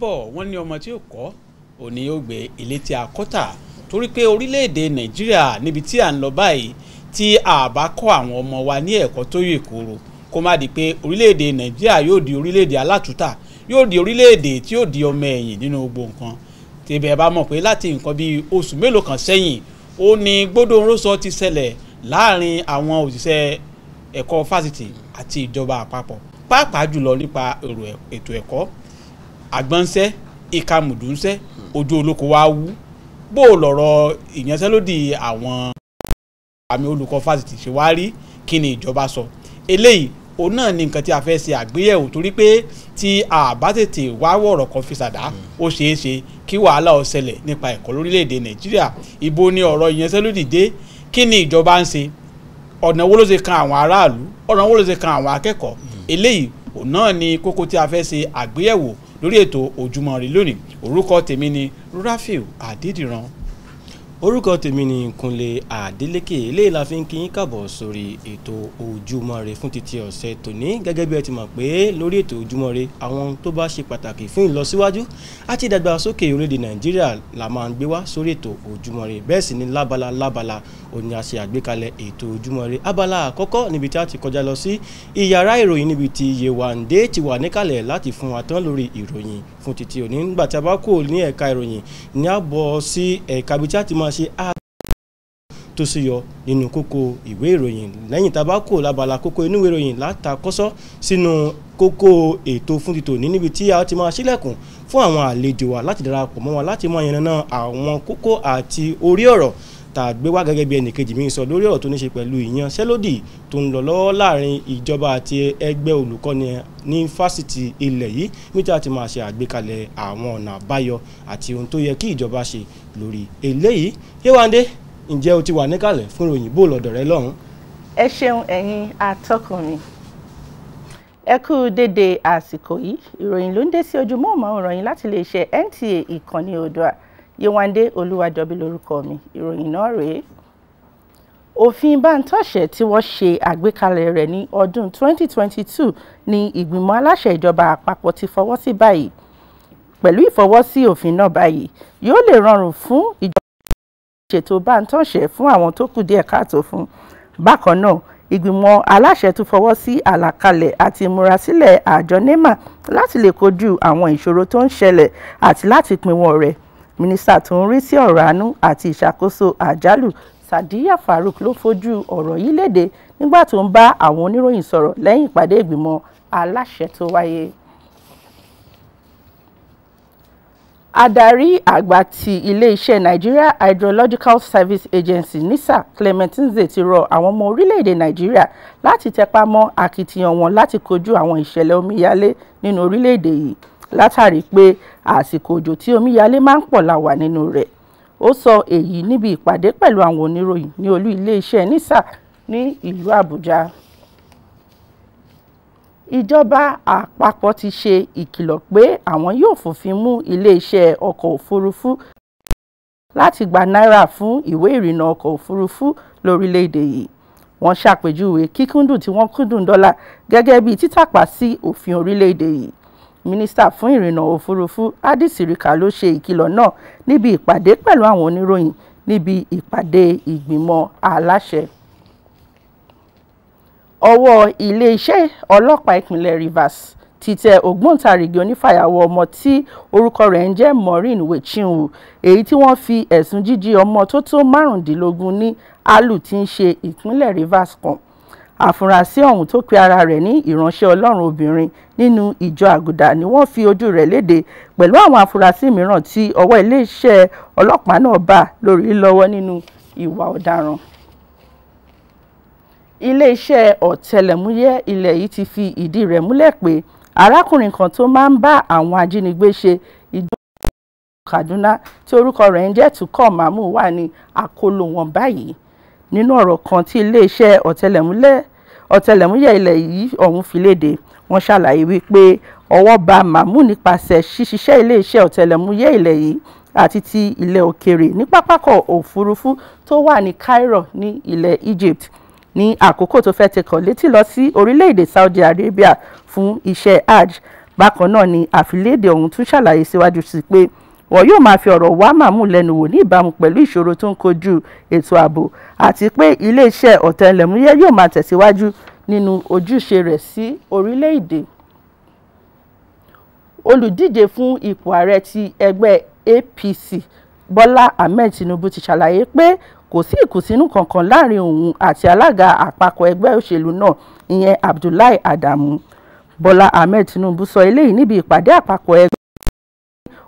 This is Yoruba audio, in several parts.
bọ̀ wọ́n ní ọmọ tí ò kọ́ òní yóò gbé ilé tí a kọ́ tà torí pé orílẹ̀-èdè nàìjíríà níbi tí à ń lọ báyìí tí a bá kọ́ àwọn ọmọ wa ní ẹ̀kọ́ tó yè kóró kó má di pé orílẹ̀-èdè nàìjíríà yóò di orílẹ̀-èdè alátúntà yóò di orílẹ̀-èdè tí yóò di ọmọ ẹ̀yìn nínú gbogbo nǹkan tẹ̀bẹ̀ bá mọ̀ pé láti nǹkan bíi oṣù mélòó kan sẹ́yìn ó ní gbódòǹròsọ ti ṣẹlẹ̀ láàrin àwọn òṣìṣẹ́ ẹ̀kọ́ fásitì àti ìjọba àpapọ̀ pàápàá jùlọ nípa ètò ẹ̀kọ́ àgbọ̀nsẹ́ ìkàmùdùnsẹ́ ojú olóko wa wú bó o lọ̀rọ̀ ìyanṣẹ́lódì àwọn àmì olùkọ́ fásitì ṣe wá rí kí ni ìjọba sọ eléyìí òun náà ni nǹkan tí a fẹ́ ṣe àgbéyẹ̀wò torí pé tí a bá tètè wá wọ̀rọ̀ kan fi ṣàdá ó ṣeé ṣe kí wàhálà ó ṣẹlẹ̀ nípa ẹ̀kọ́ lórílẹ̀‐èdè nàìjíríà ibo ni ọ̀rọ̀ ìyanṣẹ́lódì dé kí ni ìjọba ń ṣe ọ̀nà wo ló ṣe kan àwọn aráàlú ọ̀nà wo ló ṣe kan àwọn akẹ́kọ̀ọ́ eléyìí òun náà ni kókó tí a fẹ́ ṣe àgbéyẹ̀wò lórí ètò Ojúmọ́ Ire lónìí orúkọ tèmi ni Rafiu Adédìran orúkọ tèmi ni Kúnlé Adélékè eléyìí la fi ń kí yín kàbọ̀ sórí ètò Ojúmọ́ Ire fún títí ọ̀sẹ̀ tòní gẹ́gẹ́ bí ẹ ti mọ̀ pé lórí ètò Ojúmọ́ Ire àwọn tó bá ṣe pàtàkì fún ìlọsíwájú àti ìdàgbàsókè orílẹ̀-èdè Nàìjíríà la máa ń gbé wá sórí ètò Ojúmọ́ Ire bẹ́ẹ̀ sì ni lábala lábala òní a ṣe àgbékalẹ̀ ètò Ojúmọ́ Ire abala àkọ́kọ́ níbi tí a ti kọjá lọ sí iyàrá Yewande ti wà níkàlẹ̀ láti fún wa tán ìròyìn fún títí òní nígbà tí a bá kò ní ẹ̀ka ìròyìn ní àbọ̀ sí ẹ̀ka ibi tí a ti máa ṣe á tó sì yọ nínú kókó ìwé ìròyìn lẹ́yìn tá a bá kò lábala kókó inú ìwé ìròyìn látàkọ́sọ́ sínú kókó ètò fún ti tòní níbi tí a ti máa ṣílẹ̀kùn fún àwọn àlejò wa láti darapọ̀ mọ́ wa láti máa yànnàná àwọn kókó àti orí ọ̀rọ̀ tá a gbé wá gẹ́gẹ́ bí ẹnìkejì mi sọ lórí ọ̀rọ̀ tó ní ṣe pẹ̀lú ìyanṣẹ́lódì tó ń lọ lọ́wọ́ láàrin ìjọba àti ẹgbẹ́ olùkọ́ni ní fásitì ilẹ̀ yìí níta ti máa ṣe àgbékalẹ̀ àwọn ọ̀nà àbáyọ àti ohun tó yẹ kí ìjọba ṣe lórí eléyìí Yéwándé ǹjẹ́ o ti wà níkàlẹ̀ fún ìròyìn bó lọ́dọ̀ rẹ lọ́hùn. ẹ ṣeun ẹ̀yin atọ́kùn ẹ kú dédé àsìkò yìí ìròyìn ló ń dé sí ojú mọ́ọ̀mọ́ ìròyìn láti iléeṣẹ́ NTA ìkànnì Oòduà Yéwándé Olúwadọ̀bí lórúkọ mi ìròyìn náà rèé òfin bántọ́ṣẹ̀ tí wọ́n ṣe àgbékalẹ̀ rẹ̀ ní ọdún 2022 ni ìgbìmọ̀ aláṣẹ ìjọba àpapọ̀ ti fọwọ́ sí báyìí pẹ̀lú ìfọwọ́sí òfin náà báyìí yóò lè rọrùn fún ìjọba ṣètò bántọ́ṣẹ̀ fún àwọn tó kù díẹ̀ káàtó fún bákan náà ìgbìmọ̀ aláṣẹ tún fọwọ́ sí àlàkalẹ̀ àti ìmúrasílẹ̀ àjọ nema láti lè kojú àwọn ìṣòro tó ń ṣẹlẹ̀ àti láti pinwọ́n rẹ̀ mínísítà tó ń rí sí ọ̀rọ̀ àánú àti ìṣàkóso àjálù sadiya farouk ló fojú ọ̀rọ̀ yìí léde nígbà tó ń bá àwọn oníròyìn sọ̀rọ̀ lẹ́yìn ìpàdé ìgbìmọ̀ aláṣẹ tó wáyé. adarí àgbà ti iléeṣẹ́ nigeria hydrological service agency nisa clement nze ti rọ àwọn ọmọ orílẹ̀-èdè nigeria láti tẹpá mọ́ akitiyan wọn láti kojú àwọn ìṣẹ̀lẹ̀ omíyalé nínú orílẹ̀-èdè yìí látàrí pé àsìkò òjò tí omíyalé máa ń pọ̀ la wà nínú rẹ̀ ó sọ èyí níbi ìpàdé pẹ̀lú àwọn oníròyìn ní olú iléeṣẹ́ nisa ní ìlú àbújá ìjọba àpapọ̀ ti ṣe ìkìlọ̀ pé àwọn yóò fòfin mú iléeṣẹ́ ọkọ̀ òfurufú láti gba náírà fún ìwé ìrìnnà ọkọ̀ òfurufú lórílẹ̀‐èdè yìí wọ́n ṣàpèjúwe kíkúndùn tí wọ́n kúndùn dọ́là gẹ́gẹ́ bí títàpá sí òfin orílẹ̀‐èdè yìí mínísítà fún ìrìnnà òfurufú hadi sirika ló ṣe ìkìlọ̀ náà níbi ìpàdé pẹ̀lú àwọn oníròyìn níbi ìpàdé ìgbìmọ̀ aláṣẹ ọwọ́ iléeṣẹ́ ọlọ́pàá ìpínlẹ̀ Rivers ti tẹ ògbóǹtarìgì onífàyàwọ́ ọmọ tí orúkọ rẹ̀ ń jẹ́ Maureen Wechinwu èyí tí wọ́n fi ẹ̀sùn jíjí ọmọ tó tó márùndínlógún ní Alu tí ń ṣe ìpínlẹ̀ Rivers kan àfúrásì ọ̀hún tó pe ara rẹ̀ ní ìránṣẹ́ ọlọ́run obìnrin nínú ìjọ àgùdà ni wọ́n fi ojú rẹ̀ léde pẹ̀lú àwọn àfúrásì mìíràn tí ọwọ́ iléeṣẹ́ ọlọ́pàá náà bá lórí lọ́wọ́ nínú ìwà ọ̀daràn iléeṣẹ́ ọ̀tẹlẹ̀múyẹ́ ilẹ̀ yìí ti fi ìdí rẹ̀ múlẹ̀ pé arákùnrin kan tó máa ń bá àwọn ajínigbé ṣe ìjọba Kaduna tí orúkọ rẹ̀ ń jẹ́ Tukọ̀ Mamu wà ní àkóló wọn báyìí nínú ọ̀rọ̀ kan tí iléeṣẹ́ ọ̀tẹlẹ̀múlẹ̀ ọ̀tẹlẹ̀múyẹ́ ilẹ̀ yìí ọ̀hún fi léde wọ́n ṣàlàyé wípé ọwọ́ ba mahmood nípasẹ̀ ṣíṣiṣẹ́ iléeṣẹ́ ọ̀tẹlẹ̀múyẹ́ ilẹ̀ yìí àti ti ilẹ̀ òkèrè ní pápákọ̀ òfurufú tó wà ní Cairo ní ilẹ̀ Egypt ní àkókò tó fẹ́ tẹkọ̀ létí lọ sí orílẹ̀-èdè Saudi Arabia fún iṣẹ́ hajj bákan náà ni àfilédè ọ̀hún tún ṣàlàyé síwájú sí pé wọn yóò máa fi ọ̀rọ̀ wá màmú lẹ́nu wò ní ìbámu pẹ̀lú ìṣòro tó ń kojú ètò ààbò àti pé iléeṣẹ́ ọ̀tẹlẹ̀múyẹ́ yóò máa tẹ̀síwájú nínú ojúṣe rẹ̀ sí orílẹ̀-èdè olùdíje fún ipò ààrẹ ti ẹgbẹ́ APC Bọ́lá Ahmed Tinubu ti ṣàlàyé pé kò sí ìkùnsínú kankan láàrin òun àti alága àpapọ̀ ẹgbẹ́ òṣèlú náà ìyẹn Abdullahi Adamu Bọ́lá Ahmed Tinubu sọ eléyìí níbi ìpàdé àpapọ̀ ẹgbẹ́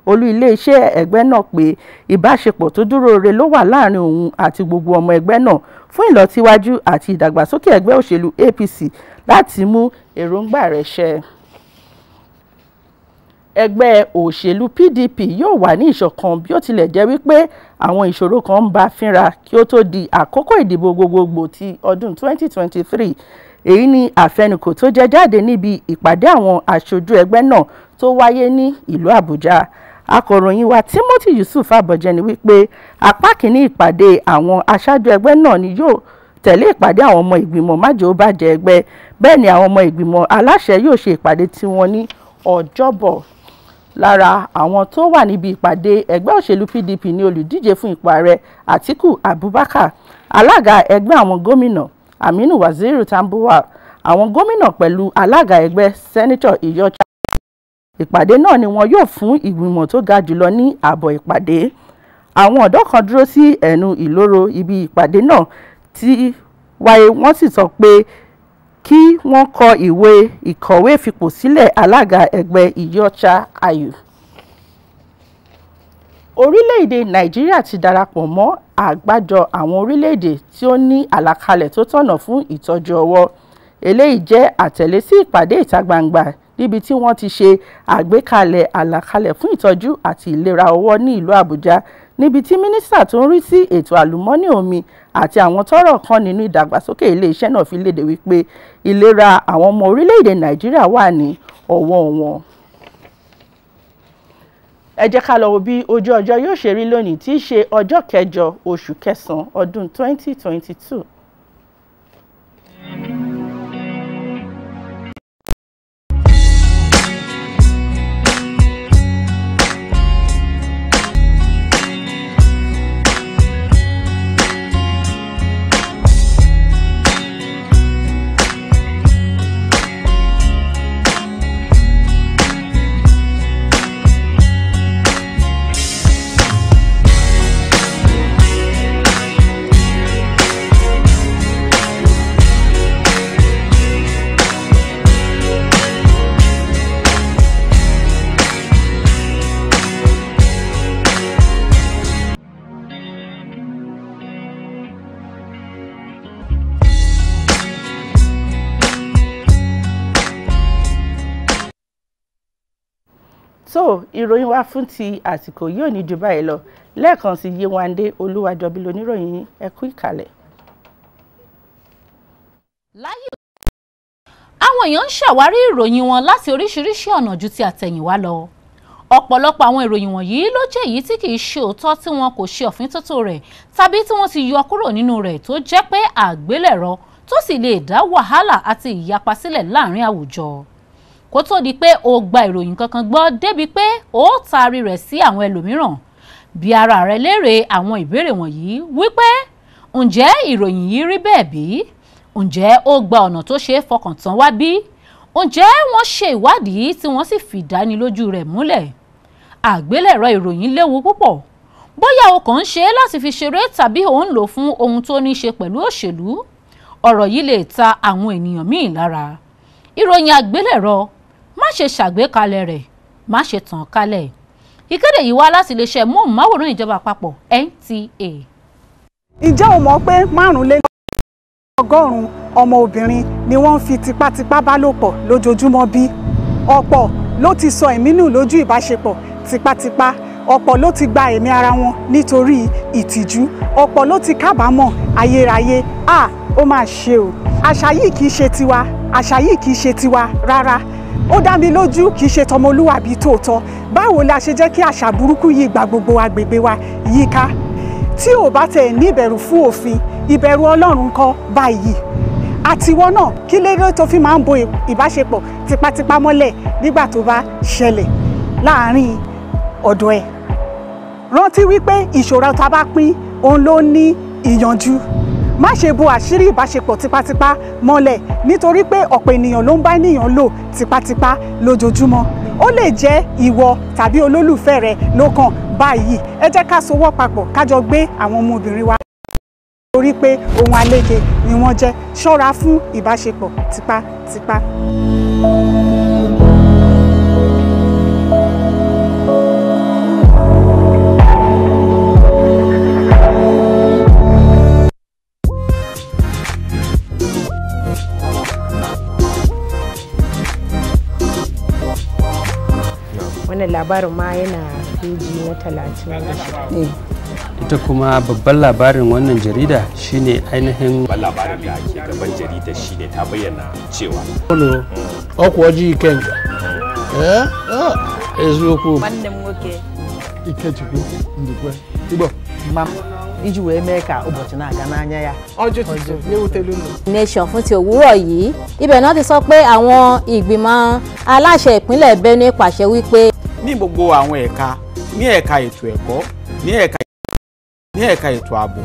olú iléeṣẹ́ ẹgbẹ́ náà pé ìbáṣepọ̀ tó dúróore ló wà láàrin òun àti gbogbo ọmọ ẹgbẹ́ náà fún ìlọsíwájú àti ìdàgbàsókè ẹgbẹ́ òṣèlú APC láti mú èròǹgbà rẹ̀ ṣẹ ẹgbẹ́ òṣèlú PDP yóò wà ní ìṣọ̀kan bí ó tilẹ̀ jẹ́ wípé àwọn ìṣòro kan ń bá fínra kí ó tó di àkókò ìdìbò gbogbogbò ti ọdún 2023 èyí ni àfẹnukò tó jẹ jáde níbi ìpàdé àwọn aṣojú ẹgbẹ́ náà tó wáyé ní ìlú Àbújá akọ̀ròyìn wa Timothy Yusuf Abọ̀jẹ ni wípé apá kìíní ìpàdé àwọn aṣáájú ẹgbẹ́ náà ni yóò tẹ̀lé ìpàdé àwọn ọmọ ìgbìmọ̀ májèóbàjẹ́ ẹgbẹ́ bẹ́ẹ̀ ni àwọn ọmọ ìgbìmọ̀ aláṣẹ yóò ṣe ìpàdé tiwọn ní ọjọ́bọ̀ lára àwọn tó wà níbi ìpàdé ẹgbẹ́ òṣèlú PDP ni olùdíje fún ipò ààrẹ Atiku Abubakar alága ẹgbẹ́ àwọn gómìnà Aminu Waziri Tambuwal àwọn gómìnà pẹ̀lú alága ẹgbẹ́ sẹ́nitọ̀ Iyorchia ìpàdé náà ni wọn yóò fún ìgbìmọ̀ tó ga jùlọ ní àbọ̀ ìpàdé àwọn ọ̀dọ́ kan dúró sí ẹnu ìloro ibi ìpàdé náà ti wáyé wọ́n sì sọ pé kí wọ́n kọ ìwé ìkọ̀wé fipò sílẹ̀ alága ẹgbẹ́ ìyọ́chá ayù. orílẹ̀-èdè nàìjíríà ti darapọ̀ mọ́ àgbájọ àwọn orílẹ̀-èdè tí ó ní àlàkalẹ̀ tó tọ̀nà fún ìtọ́jú ọwọ́ eléyìí jẹ́ àtẹ̀lé sí ìpàdé ìta gbangba níbi tí wọ́n ti ṣe àgbékalẹ̀ àlàkalẹ̀ fún ìtọ́jú àti ìlera ọwọ́ ní ìlú Àbújá níbi tí mínísítà tó ń rí sí ètò àlùmọ́nì omi àti àwọn tọ́rọ̀ kan nínú ìdàgbàsókè iléeṣẹ́ náà fi léde wípé ìlera àwọn ọmọ orílẹ̀-èdè Nàìjíríà wà ní ọwọ́ wọn ẹ jẹ́ ká lọ wo bí ojú ọjọ́ yóò ṣe rí lónìí tí í ṣe ọjọ́ kẹjọ oṣù kẹsàn-án ọdún 2022. so ìròyìn wa fún ti àsìkò yìí ò ní ju báyìí lọ lẹ́ẹ̀kan sí Yéwándé Olúwàjọbí lóníròyìn ẹ kú ìkàlẹ̀. láyé àwọn èèyàn ń ṣàwárí ìròyìn wọn láti oríṣiríṣi ọ̀nà ju ti àtẹ̀yìnwá lọ ọ̀pọ̀lọpọ̀ àwọn ìròyìn wọ̀nyí ló jẹ́ èyí tí kì í ṣe òótọ́ tí wọn kò ṣe ọ̀fíntótó rẹ̀ tàbí tí wọ́n ti yọ kúrò nínú rẹ̀ tó jẹ́ pé àgbélẹ̀rọ tó sì lè dá wàhálà àti ìyapa sílẹ̀ láàrin àwùjọ kó tó di pé o gba ìròyìn kankan gbọ́ débi pé o taari rẹ̀ sí àwọn ẹlòmíràn bí ara rẹ léèrè àwọn ìbéèrè wọ̀nyí wípé ǹjẹ́ ìròyìn yìí rí bẹ́ẹ̀ bí ǹjẹ́ ó gba ọ̀nà tó ṣeé fọkàn tán wá bí ǹjẹ́ wọ́n ṣe ìwádìí tí wọ́n sì fìdánilójú rẹ̀ múlẹ̀ àgbélẹ̀rọ ìròyìn léwu púpọ̀ bóyá o kàn ń ṣe é láti fi ṣeré tàbí ò ń lò fún ohun tó ní ṣe pẹ̀lú òṣèlú ọ̀rọ̀ yìí lè ta àwọn ènìyàn míì lára ìròyìn àgbélẹ̀rọ má ṣe ṣàgbékalẹ̀ rẹ̀ má ṣe tàn kálẹ̀ ìkéde yìí wá láti iléeṣẹ́ móhùnmáwòrán ìjọba àpapọ̀ NTA. ǹjẹ́ o mọ̀ pé márùn-ún lé ní ọgọ́rùn-ún ọmọ obìnrin ni wọ́n ń fi tipátipá bá lò pọ̀ lójoojúmọ́ bí ọ̀pọ̀ ló ti sọ ẹ̀mí nù lójú ìbáṣepọ̀ tipátipá ọ̀pọ̀ ló ti gba ẹ̀mí ara wọn nítorí ìtìjú ọ̀pọ̀ ló ti kábàámọ̀ ayérayé a ó máa ṣe o àṣà yìí kì í ṣe tiwa àṣà yìí kì í ṣe tiwa rárá ó dá mi lójú kì í ṣe tọmọlúwàbí tòótọ́ báwo la ṣe jẹ́ kí àṣà burúkú yìí gba gbogbo agbègbè wa yíká tí ò bá tẹ̀ ní ìbẹ̀rù fún òfin ìbẹ̀rù ọlọ́run kọ́ báyìí àtiwọ́ náà kí lérò tó fi máa ń bo ìbáṣepọ̀ tipátipá mọ́lẹ̀ nígbà tó bá ṣẹlẹ̀ láàárín ọ̀dọ̀ ẹ̀ rántí wípé ìṣòro tá bá pín òun ló ní ìyanjú má ṣe bo àṣírí ìbáṣepọ̀ tipátipá mọ́lẹ̀ nítorí pé ọ̀pọ̀ ènìyàn ló ń bá ènìyàn lò tipátipá lójoojúmọ́ ó lè jẹ́ ìwọ tàbí olólùfẹ́ rẹ ló kàn báyìí ẹ jẹ́ ká sowọ́ papọ̀ ká jọ gbé àwọn ọmọbìnrin wa torí pé ohun àlejò ni wọ́n jẹ́ ṣọ́ra fún ìbáṣepọ̀ tipátipá. wannan labarin ma yana peji na talatin eh, ita kuma babban labarin wannan jarida shine ainihin babban labarin da ke gaban jarida shine ta bayyana cewa ọkwa ji kenka eziokwu nwanne m nwoke ikechukwu ndukwe igbo iji wee mee ka ụbọchị na-aga n'anya ya nation fún ti òwúrọ̀ yìí ibẹ̀ náà ti sọ pé àwọn ìgbìmọ̀ aláṣẹ ìpínlẹ̀ Benue pàṣẹ wípé gbogbo àwọn ẹ̀ka ní ẹ̀ka ètò ẹ̀kọ́ ní ẹ̀ka ní ẹ̀ka ètò ààbò.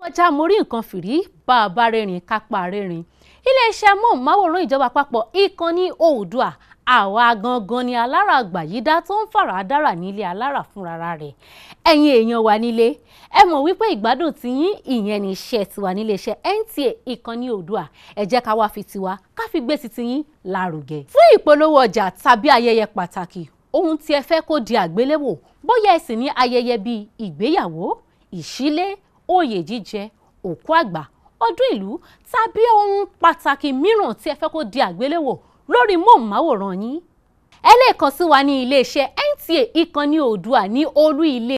kọjá mo rí nǹkan fìrí bá a bá rẹ́rìn kápá rẹ́rìn iléeṣẹ́ amóhùnmáwòrán ìjọba àpapọ̀ ìkànnì Oòduà àwa gangan ni alára àgbàyídá tó ń fara dára nílé alára fúnra rẹ̀ ẹ̀yin èèyàn wa nílé ẹ mọ̀ wípé ìgbádùn ti yín ìyẹn ní iṣẹ́ tiwa nílé iṣẹ́ NTA ìkànnì Oòduà ẹ jẹ́ ká wá fi tiwa ká fi gbé ti tiyín lárugẹ. fún ìpolówó ọjà tàbí ayẹyẹ pàtàkì ohun tí ẹ fẹ́ kó di àgbéléwò bóyá ẹ sì ní ayẹyẹ bíi ìgbéyàwó ìṣílé oyè jíjẹ òkú àgbà ọdún ìlú tàbí ohun pàtàkì mìíràn tí ẹ fẹ́ kó di àgbéléwò lórí móhùnmáwòrán yín ẹ lè kàn sí wa ní iléeṣẹ́ NTA ìkànnì Oòduà ní olú ilé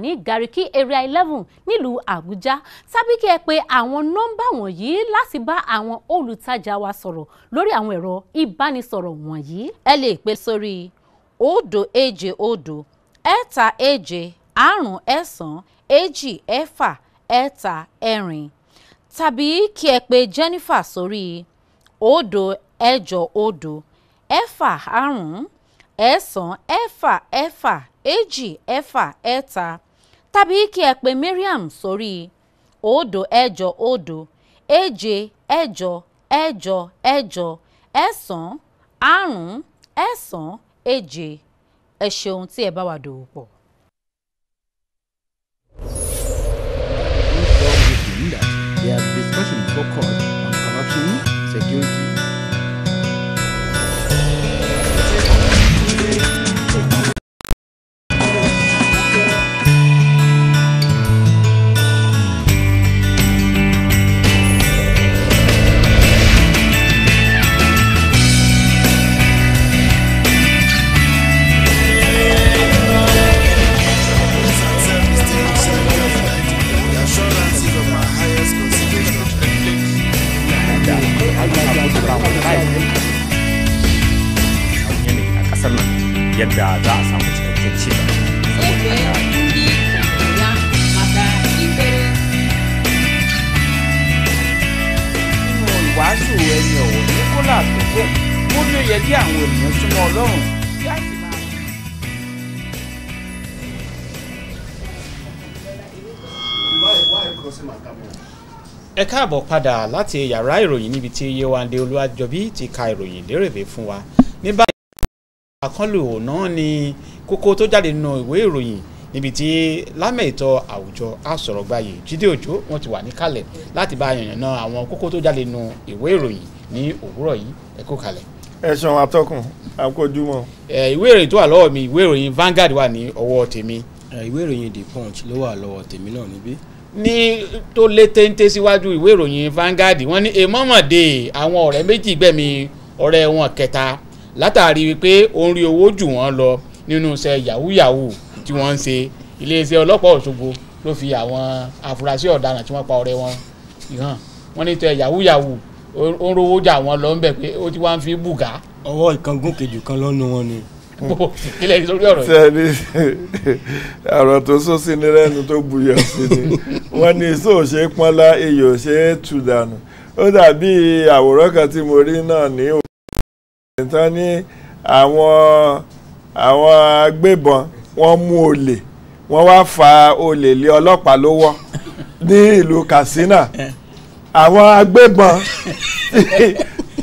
ní Gariki area eleven nílùú Àbújá tàbí kí ẹ pè àwọn nọ́mbà wọ̀nyí láti bá àwọn olùtajà wa sọ̀rọ̀ lórí àwọn ẹ̀rọ ìbánisọ̀rọ̀ wọ̀nyí. ẹ lè pè sórí òdo èje òdo ẹ̀ta èje àrùn ẹ̀sán èjì ẹ̀fà ẹ̀ta ẹ̀rin tàbí kí ẹ pè Jennifer sórí òdo ẹ̀jọ òdo ẹ̀fà àrún ẹ̀sán ẹ̀fà ẹ̀fà èjì ẹ̀fà ẹ̀ta tàbí kí ẹ pe Mariam sórí òdo ẹ̀jọ òdo èje ẹ̀jọ ẹ̀jọ ẹ̀jọ ẹ̀sán àrún ẹ̀sán èje ẹ ṣeun tí ẹ bá wà dòwò pọ̀. They have discussion focused on corruption, security, kayayyaki a yanayi a ƙasar nan yadda za a samu cikakken ci gaba wàásù ẹni ọ̀wọ̀ ní kólà tó kó ó ní ó yẹ kí àwọn ènìyàn súnmọ́ ọlọ́run kí á sì máa. Why, why crossing my camera? ẹ káàbọ̀ padà láti yàrá ìròyìn níbi tí Yéwándé Olúwàjọbí ti ka ìròyìn lérèbé fún wa ní báyìí àkọlù náà ni kókó tó jáde nínú ìwé ìròyìn níbi tí lámẹ̀ ìtọ́ àwùjọ àsọ̀rọ̀gbàyè Jídé Òjó wọn ti wà níkàlẹ̀ láti bá yànnà náà àwọn kókó tó jáde nínú ìwé ìròyìn ní òwúrọ̀ yìí ẹ kó kalẹ̀. ẹ ṣeun atọ́kùn àkójúmọ́. ẹ ìwé ìròyìn tó wà lọ́wọ́ mi ìwé ìròyìn Vanguard wà ní ọwọ́ tèmi. ìwé ìròyìn The Punch ló wà lọ́wọ́ tèmi náà níbí ní tó lé téńté síwájú ìwé ìròyìn Vanguard wọ́n ní èmọ́mọ̀dé àwọn ọ̀rẹ́ méjì gbẹ̀mí ọ̀rẹ́ wọn kẹta látàrí wípé ó ń rí owó jù wọ́n lọ nínú iṣẹ́ yahoo yahoo tí wọ́n ń ṣe iléeṣẹ́ ọlọ́pàá Òṣogbo ló fi àwọn afurasí ọ̀daràn tí wọ́n pa ọ̀rẹ́ wọn hàn wọ́n ní tẹ yahoo yahoo ó ń rówó jà wọ́n lọ ń bẹ̀ pé ó ti wá ń fi bùgá. ọwọ́ ìkángun kejì kan lọ́nu wọn ni kílẹ̀ yìí sórí ọ̀rọ̀ yìí. sẹ́ni àrùn tó sún sí ni lẹ́nu tó buyọ̀ sí ni wọ́n ní iṣẹ́ ò ṣe pọ́nlá iyì ò ṣe é tù dànù ó dàbí àwòrán kan tí mo rí náà ní òkè tán ní àwọn agbébọn wọ́n mú olè wọ́n wá fa olè lé ọlọ́pàá lọ́wọ́ ní ìlú Katsina àwọn agbébọn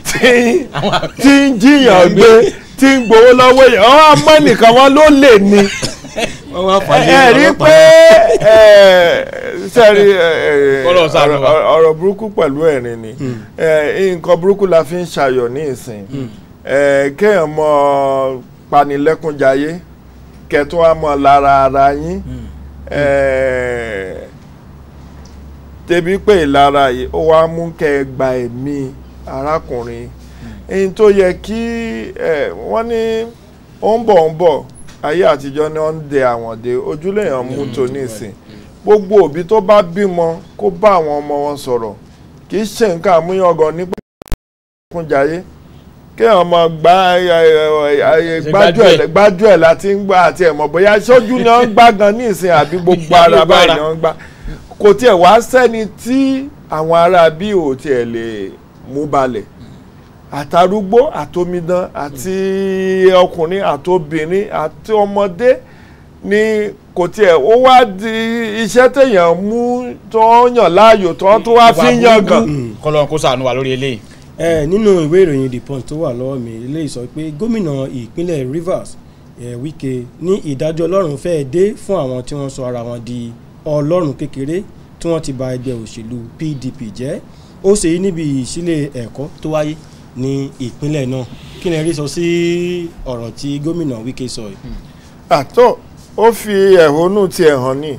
tí ń jiyàn gbé tí ń gbowó lọ́wọ́ yẹn ọ́n àmọ́ ẹnìkan wọn ló lè ní ẹ rí pé sẹ́rí ọ̀rọ̀ burúkú pẹ̀lú ẹ̀rín ni hmm. nǹkan burúkú la fi ń ṣayọ̀ ní ìsìn hmm. kéèyàn mọ panilẹ́kúnjayé kẹtún á mọ lára ara yín tẹbi hmm. pé ìlara yìí ó wá mú kẹ́ ẹ gba ẹ̀mí arákùnrin ẹni tó yẹ kí wọ́n ní ó ń bọ̀ ń bọ̀ ayé àtijọ́ ni wọ́n ń de àwọn de ojúlẹ̀yàn mú tó nísìn gbogbo òbí tó bá bímọ kó bá àwọn ọmọ wọn sọ̀rọ̀ kì í ṣe nǹkan àmúyangàn nípa ìkúnjayé kéèyàn mọ gbájú ẹ̀ láti ń gbá àti ẹ̀mọ̀ bóyá sójú ni wọ́n ń gbá gan ní ìsìn àbí gbogbo ara báyìí ni wọ́n ń gbá kò tiẹ̀ wá sẹ́ni tí àwọn ará bí ò tiẹ̀ lè mú balẹ̀ àtàrúgbó àtomidan àti ọkùnrin àtobìnrin àti ọmọdé ni kò tiẹ̀ ó wá di iṣẹ́ téèyàn mú tó yàn láàyò tó tó wá fi yàn gan. kọlọ́n kó ṣàánú wa lórí eléyìí. ẹ nínú ìwé ìròyìn the punch tó wà lọ́wọ́ mi eléyìí sọ pé gómìnà ìpínlẹ̀ Rivers ẹ̀ Wike ní ìdájọ́ ọlọ́run fẹ́ẹ́ dé fún àwọn tí wọ́n sọ ara wọn di ọlọ́run kékeré tí wọ́n ti ba ẹgbẹ́ òṣèlú PDP jẹ́ ó ṣèyí níbi ìsílẹ̀ ẹ̀kọ́ tó wáyé ní ìpínlẹ̀ náà kí ni ẹ rí sọ sí ọ̀rọ̀ tí gómìnà Wike sọ yìí. Hmm. àtọ ó fi ẹ̀hónú tiẹ̀ hàn ní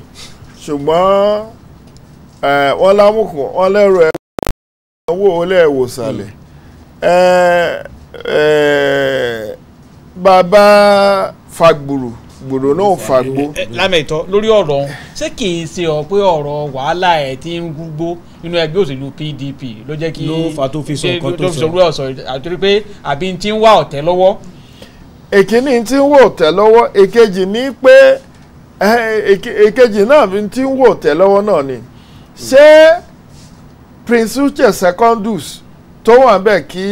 ṣùgbọ́n wọ́n lámùkùn wọ́n lẹ́rù ẹ̀ owó olè ìwòsàlẹ̀ hmm. bàbá fagbùrù gbòdò náà fà gbó. Eh, eh, lámẹ̀tọ́ lórí ọ̀rọ̀ ọ̀hún ṣé kì í ṣe ọ pé ọ̀rọ̀ wàhálà ẹ̀ ti ń gbúgbó nínú ẹgbẹ́ òṣèlú PDP ló jẹ́ kí ló fà tó fi sọ nǹkan tó sọ ló sọ àtúrí pé àbí ti ń wá ọ̀tẹ̀ lọ́wọ́. èkíní ti ń wò ọ̀tẹ̀ lọ́wọ́ èkejì ní pé eh, èkejì náà ti ń wò ọ̀tẹ̀ lọ́wọ́ náà ni ṣé Prince Uche Secondus tó wà ń bẹ̀ kí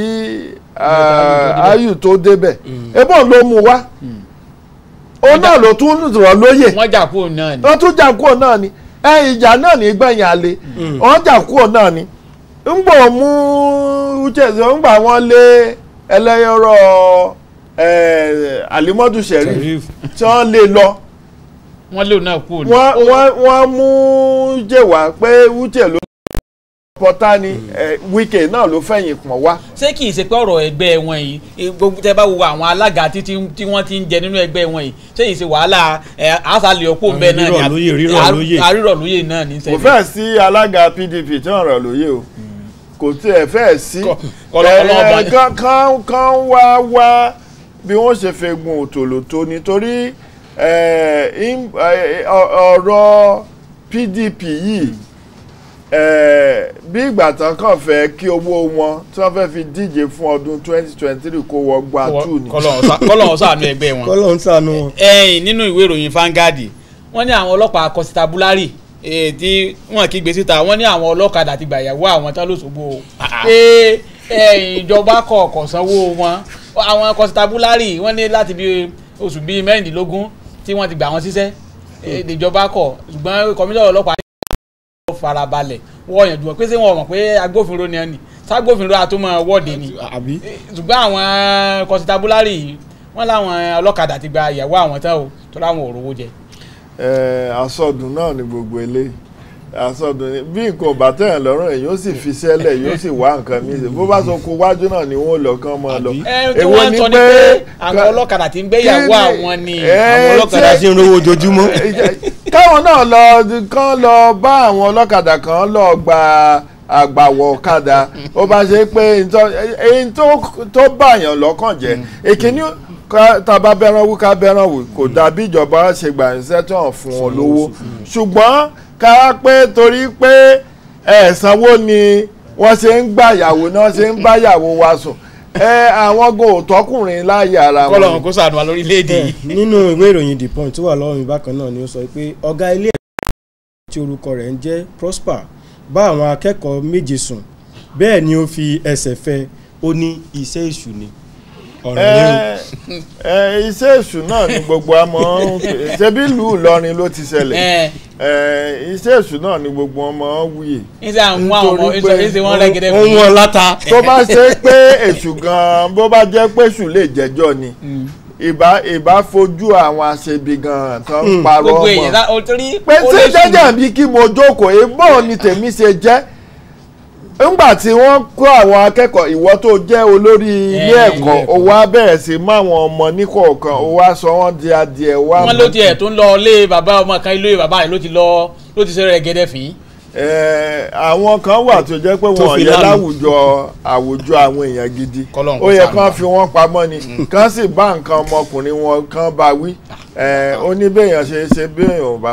ayù tó débẹ̀ mm. ebó ló mú wá. Mm. O náà ló tún zụrụ lóyè wọ́n jà kúrò ni wọ́n tún jà náà ni ẹ ìjà náà ní gbẹ̀yìn àlè mm. wọ́n jà ni ń mú ń gbà wọ́n lé alimọ́dù tí wọ́n lé lọ wọ́n lé wọ́n mú jẹ̀wá pé uche ló. pọ̀tá ni wíkẹ̀ náà ló fẹ̀yìn pọ̀n wá. ṣé kì í ṣe pé ọ̀rọ̀ ẹgbẹ́ wọn yìí gbogbo tẹ bá wo àwọn alága tí wọ́n ti ń jẹ nínú ẹgbẹ́ wọn yìí ṣé yìí ṣe wàhálà àṣàlẹ̀ ọ̀pọ̀ ń bẹ náà ni àrírọ̀ lóye náà ní sẹ́yìn. kò fẹ́ sí alága PDP tí wọ́n rọ̀ lóye o kò tiẹ̀ fẹ́ sí kan wá wá bí wọ́n ṣe fẹ́ gun òtòlótó nítorí ọ̀rọ̀ PDP yìí. Mm bí ìgbà tán kàn fẹ́ kí owó wọn tí wọ́n fẹ́ fi díje fún ọdún twenty twenty three kó wọ gba two ni. kọlọ́hún ṣàánú ẹgbẹ́ wọn. kọlọ́hún ṣàánú wọn. ẹyìn nínú ìwé ìròyìn Vanguard wọ́n ní àwọn ọlọ́pàá akọ́síta búlárì tí wọ́n kí gbé síta wọ́n ní àwọn ọlọ́kadà ti gbà ìyàwó àwọn tán lóṣogbo pé ìjọba kọ̀ọ̀kan sanwó wọn àwọn akọ́síta búlárì wọ́n ní láti bí oṣù bíi mẹ́rìndínlógún tí wọ́n ti gbà wọn síṣẹ́ hmm. ìjọba kọ̀ ṣùgbọ́n kọmíṣọ́ ọlọ́pàá farabalẹ̀ wọ́n yànjú wọn pé ṣé wọn mọ̀ pé agbófinró ni ẹ nì ságbófinró àtúmọ̀ wọ́ọ̀dì ni eh, ṣùgbọ́n àwọn eh, kọ́sítábúlárì yìí wọ́n láwọn ọlọ́kadà ti gba ìyàwó àwọn tán o tó láwọn òrówó jẹ. ẹ eh, asọdùn náà ni gbogbo eléyìí àsọdùn ni bí nǹkan ò bá tẹ̀yàn lọ́rùn ẹ̀ yóò sì fi sẹ́lẹ̀ yóò sì wá nǹkan mi sí bó bá sọ kó wájú náà ni wọ́n lọ kán máa lọ. èwo ni pé àwọn ọlọ́kadà ti ń gbéyàwó àwọn ni àwọn ọlọ́kadà ti ń rówó ojoojúmọ́. káwọn náà lọ kán lọ bá àwọn ọlọ́kadà kan lọ gba àgbàwọ̀ ọ̀kadà ó bá ṣe pé èyí tó bàyàn lọ́kàn jẹ́ èkíní mm. tàbá bẹ́ran wú ká bẹ́ran wù kò dàbí ìjọba ṣe gbà fún ọ lówó ṣùgbọ́n ká pé torí pé ẹ̀sánwó ni wọ́n ṣe ń gbàyàwó náà ṣe ń báyàwó wa sùn ẹ àwọn go tọkùnrin láàyè ara wọn. kọlọ̀ kó sàánú wa lórílẹ̀‐èdè yìí. Eh, nínú ìwé ìròyìn the point tó wà lọ́wọ́ mi bákan náà ni ó sọ pé ọ̀gá ilé ẹ̀kọ́ tí orúkọ rẹ̀ ń jẹ́ Prosper bá àwọn akẹ́kọ̀ọ́ méje sùn bẹ́ẹ̀ ni ó fi ẹsẹ̀ fẹ́ ó ní iṣẹ́ èṣù ni. iṣẹ́ èṣù náà ni gbogbo àmọ́ ṣebí ìlú Ìlọrin ló ti ṣẹlẹ̀ iṣẹ́ èṣù náà ni gbogbo ọmọ wuyè nítorí pé ohun ọ̀làta tó bá ṣe pé èṣù gan-an bó bá jẹ́ pé èṣù lè jẹ́jọ́ ni hmm. ìbá ìbá fojú àwọn aṣebi gan-an tó ń hmm. parọ́ ọmọ pé ṣé jẹ́jẹ́ bí kí mo jókòó ebó ni tèmi ṣe jẹ́ ńgbà tí wọ́n kó àwọn akẹ́kọ̀ọ́ ìwọ tó jẹ́ olórí ilé ẹ̀kọ́ o wá bẹ̀rẹ̀ sí mọ àwọn ọmọ níkọ̀ọ̀kan o wá sọ wọ́n di adìẹ wá. wọn ló tiẹ̀ tó ń lọ ilé bàbá ọmọ kan ilé bàbá rẹ̀ ló ti lọ ló ti sẹ́rẹ̀ gẹ́dẹ́ fì í. àwọn kan wà tó jẹ́ pé wọn yẹ láwùjọ àwùjọ àwọn èèyàn gidi ó yẹ kán fi wọ́n pamọ́ ni mm. kán sì bá nǹkan ọmọkùnrin wọn kán bá wí ó ní bẹ́ẹ̀ ṣe ṣe bẹ́ẹ̀ ò bá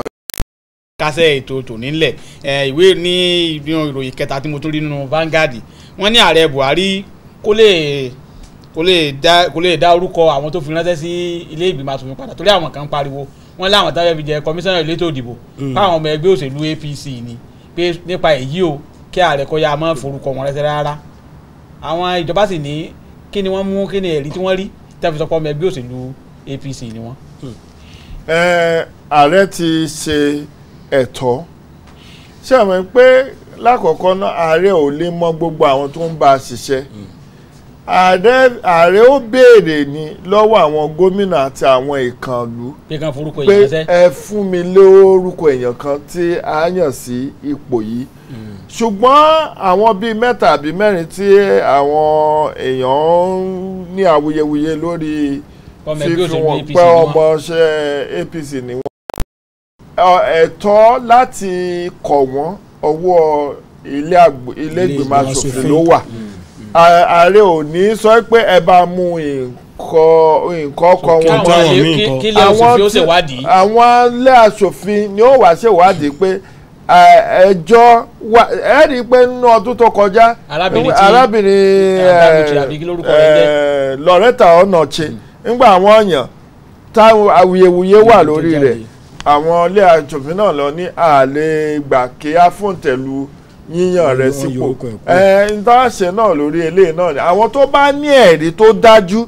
kásẹ̀ ètò tòní ńlẹ̀ ìwé ní ìròyìn kẹta tí mo tún rí nínú Vanguard wọ́n ní ààrẹ Buhari kó lè kó lè dá kó lè dá orúkọ àwọn tó fi ránṣẹ́ sí ilé ìgbìmọ̀ asòfin padà torí àwọn kan ń pariwo wọ́n láwọn táwọn fi jẹ kọmíṣánná elétò ìdìbò mm. fáwọn ọmọ ẹgbẹ́ òṣèlú APC ni pé nípa èyí o kí ààrẹ kọ́ ya máa forúkọ wọn rẹ́sẹ̀ rárá àwọn ìjọba sì ní kí ni wọ́n mú kí ni ẹ̀rí tí wọ́n rí tẹ́ fi sọ pé ọmọ ẹgbẹ́ òṣèlú APC ni wọ́n. Mm. ààrẹ ti ṣe ẹ̀tọ́ ṣé àmọ́ pé lákọ̀ọ́kọ́ náà ààrẹ ò lè mọ gbogbo àwọn tó ń bá a ṣiṣẹ́ hmm. ààrẹ ó béèrè ní lọ́wọ́ àwọn gómìnà àti àwọn ìkànnlú pé ẹ fún mi lé orúkọ èèyàn kan tí a yàn sí ipò yìí hmm. ṣùgbọ́n àwọn bíi mẹ́ta àbí mẹ́rin tí àwọn èèyàn ní awuyewuye lórí fífi wọn pẹ́ ọmọọṣẹ́ APC ni wọ́n. ẹ̀tọ́ láti kọ̀ wọ́n ọwọ́ ilé asòfin ló wà mm, mm. ààrẹ ò ní sọ pé ẹ bá mú nǹkan ọkọ wọn àwọn ilé ni ó wá ṣèwádìí pé ẹjọ́ wa ẹ pé nínú ọdún tó kọjá arábìnrin Loretta àwọn èèyàn táwọn awuyewuye wà lórí rẹ̀ àwọn ilé àjòfin náà lọ ní àlè gbà kí á fún tẹ̀lú yíyàn rẹ̀ sípò ẹ̀ ń náà lórí eléyìí náà ni àwọn tó bá ní ẹ̀rí tó dájú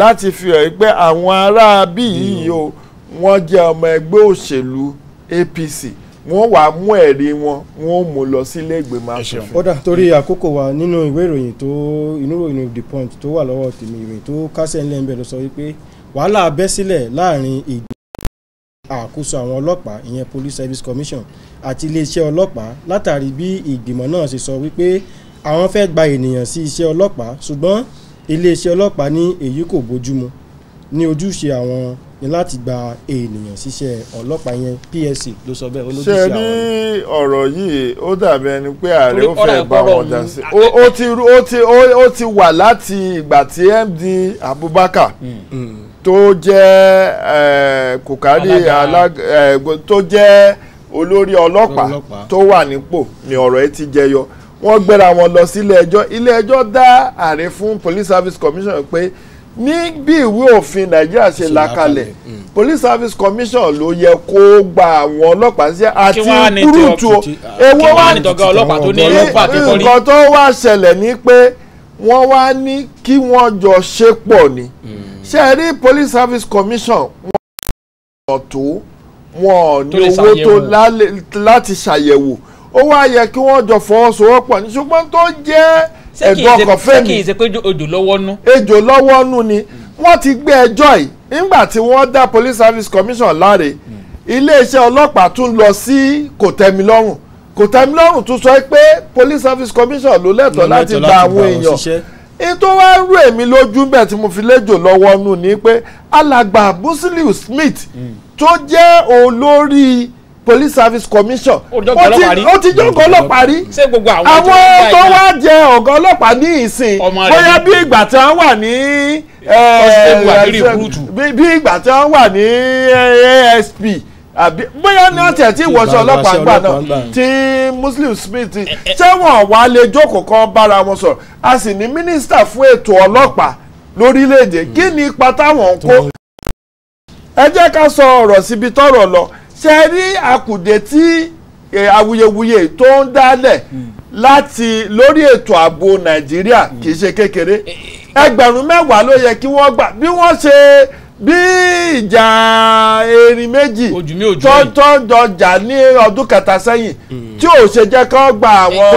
láti fi hàn pé àwọn ará bí yìí o wọ́n jẹ́ ọmọ ẹgbẹ́ òṣèlú APC wọ́n wàá mú ẹ̀rí wọn wọ́n mú lọ sílé ìgbìmọ̀ aṣòfin. ó torí àkókò wa nínú ìwé ìròyìn tó inú ìròyìn The Punch tó wà lọ́wọ́ tèmi ìròyìn tó kásẹ̀ ńlẹ̀ lọ sọ wípé wàhálà bẹ́ sílẹ̀ láàrin ìgbìmọ̀ àkóso àwọn ọlọ́pàá ìyẹn police service commission àti iléeṣẹ́ ọlọ́pàá látàrí bí ìgbìmọ̀ náà ṣe sọ wípé àwọn fẹ́ gba ènìyàn sí iṣẹ́ ọlọ́pàá ṣùgbọ́n iléeṣẹ́ ọlọ́pàá ní èyí kò bójúmu ní ojúṣe àwọn ni láti gba ènìyàn síṣẹ́ ọlọ́pàá yẹn PSC ló sọ bẹ́ẹ̀ olójúṣe àwọn. ṣe ní ọ̀rọ̀ yìí ó dàbí ẹni pé ààrẹ ó fẹ́ bá wọn dá sí ó ti wà láti ìgbà tí MD Abubakar. Hmm. Hmm tó jẹ́ kòkárì tó jẹ́ olórí ọlọ́pàá tó wà nípò ni ọ̀rọ̀ ẹ ti jẹyọ wọ́n gbéra wọn lọ sílé ẹjọ́ ilé ẹjọ́ dá ààrẹ fún police service commission pé ní bí ìwé òfin nàìjíríà ṣe là mm. police service commission ló yẹ kó gba àwọn ọlọ́pàá sí àti kúrútù ewó wá nǹkan tó wá ṣẹlẹ̀ ni pé wọ́n wá ní kí wọ́n jọ ṣe pọ̀ ni. Mm ṣe rí police service commission wọn ò tó wọn ò ní owó tó láti ṣàyẹ̀wò ó wá yẹ kí wọ́n jọ fọwọ́sowọ́pọ̀ ní ṣùgbọ́n tó jẹ́ ẹ̀dùn ọkàn fẹ́mi ṣé kì í ṣe pé ejò lọ́wọ́ nú. ejò lọ́wọ́ nú ni hmm. wọ́n ti gbé ẹjọ́ yìí nígbà tí wọ́n dá police service commission láre hmm. iléeṣẹ́ ọlọ́pàá tún lọ sí kòtẹ́milọ́rùn kòtẹ́milọ́rùn tún sọ pé police service commission ló lẹ́tọ̀ọ́ láti gba àwọn èèyàn ètò wa ń rú èmi lójú bẹ́ẹ̀ tí mo fi léjò lọ́wọ́ nù ni pé alàgbà Busiliu Smith tó jẹ́ olórí police service commission ó ti jọ́ ọ̀gá ọlọ́pàá rí àwọn tó wá jẹ ọ̀gá ọlọ́pàá ní ìsìn bóyá bí ìgbà tí wọ́n wà ní eh, eh, bí ìgbà tí wọ́n wà ní eh, ASP àbí bóyá ní ọ̀tẹ̀ tí ìwọ̀sọ̀ ọlọ́pàá gbà náà tí Muslim Smith sẹ́wọ̀n wà lè jókòó kan bára wọn sọ̀rọ̀ a sì ní mínísítà fún ètò ọlọ́pàá lórílẹ̀‐èdè hmm. kí ni ipa táwọn ń kó. ẹ jẹ́ ká sọ ọ̀rọ̀ síbi tọ́rọ̀ lọ ṣe rí àkùdé tí awuyewuye tó ń dálẹ̀ hmm. láti lórí ètò ààbò Nàìjíríà kì í ṣe hmm. kékeré eh, eh, eh. ẹgbẹ̀rún mẹ́wàá ló yẹ kí wọ́n gbà bí wọ́n ṣe bí ìjà erin méjì tó dọjà ní ọdún kẹta sẹ́yìn hmm. tí ò ṣe jẹ́ kó gba àwọn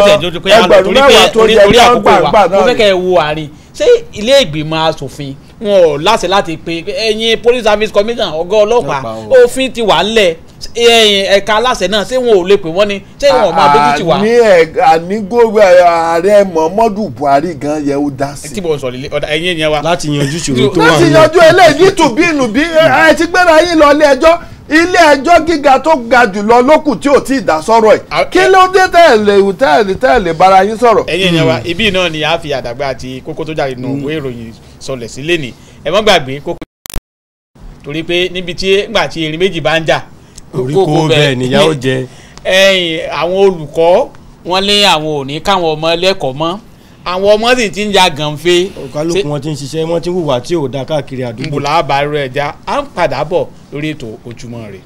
ẹgbẹ̀rún mẹ́wàá tó yẹ kí wọ́n gbà gbà náà ni. mo fẹ́ kẹ́ ẹ wo àárín ṣé ilé ìgbìmọ̀ asòfin wọn ò láṣẹ láti pe ẹ̀yin police service commission ọ̀gá ọlọ́pàá òfin ti wà ńlẹ̀ ẹka aláṣẹ náà ṣé wọn ò lè pè wọn ni ṣé wọn ò máa dójú tì wá. àní ẹ àní gómìnà ààrẹ Buhari gan yẹ ó dá sí. ọ̀dà ẹ̀yìn láti yanjú ìṣòro tó wà láti yanjú eléyìí bí ẹ ti gbéra ilé ẹjọ́ gíga tó ga jùlọ tí ò tí ì dá kí ló dé tẹ̀lé tẹ̀lé tẹ̀lé bara yín sọ̀rọ̀. ẹ̀yin hmm. ni a fi àdàgbà oríkó bẹ́ẹ̀ nìyá ó jẹ. ẹ̀yin àwọn olùkọ́ wọ́n lé àwọn òní káwọn ọmọ lẹ́kọ̀ọ́ mọ́ àwọn ọmọ sì ti ń ja gànfẹ. ọ̀kálùkù wọn ti ń ṣiṣẹ́ wọ́n ti ń hùwà tí ò da káàkiri àdúgbò. nbùlà àbárò ẹja à ń padà bọ̀ lórí ètò Ojúmọ́ Ire.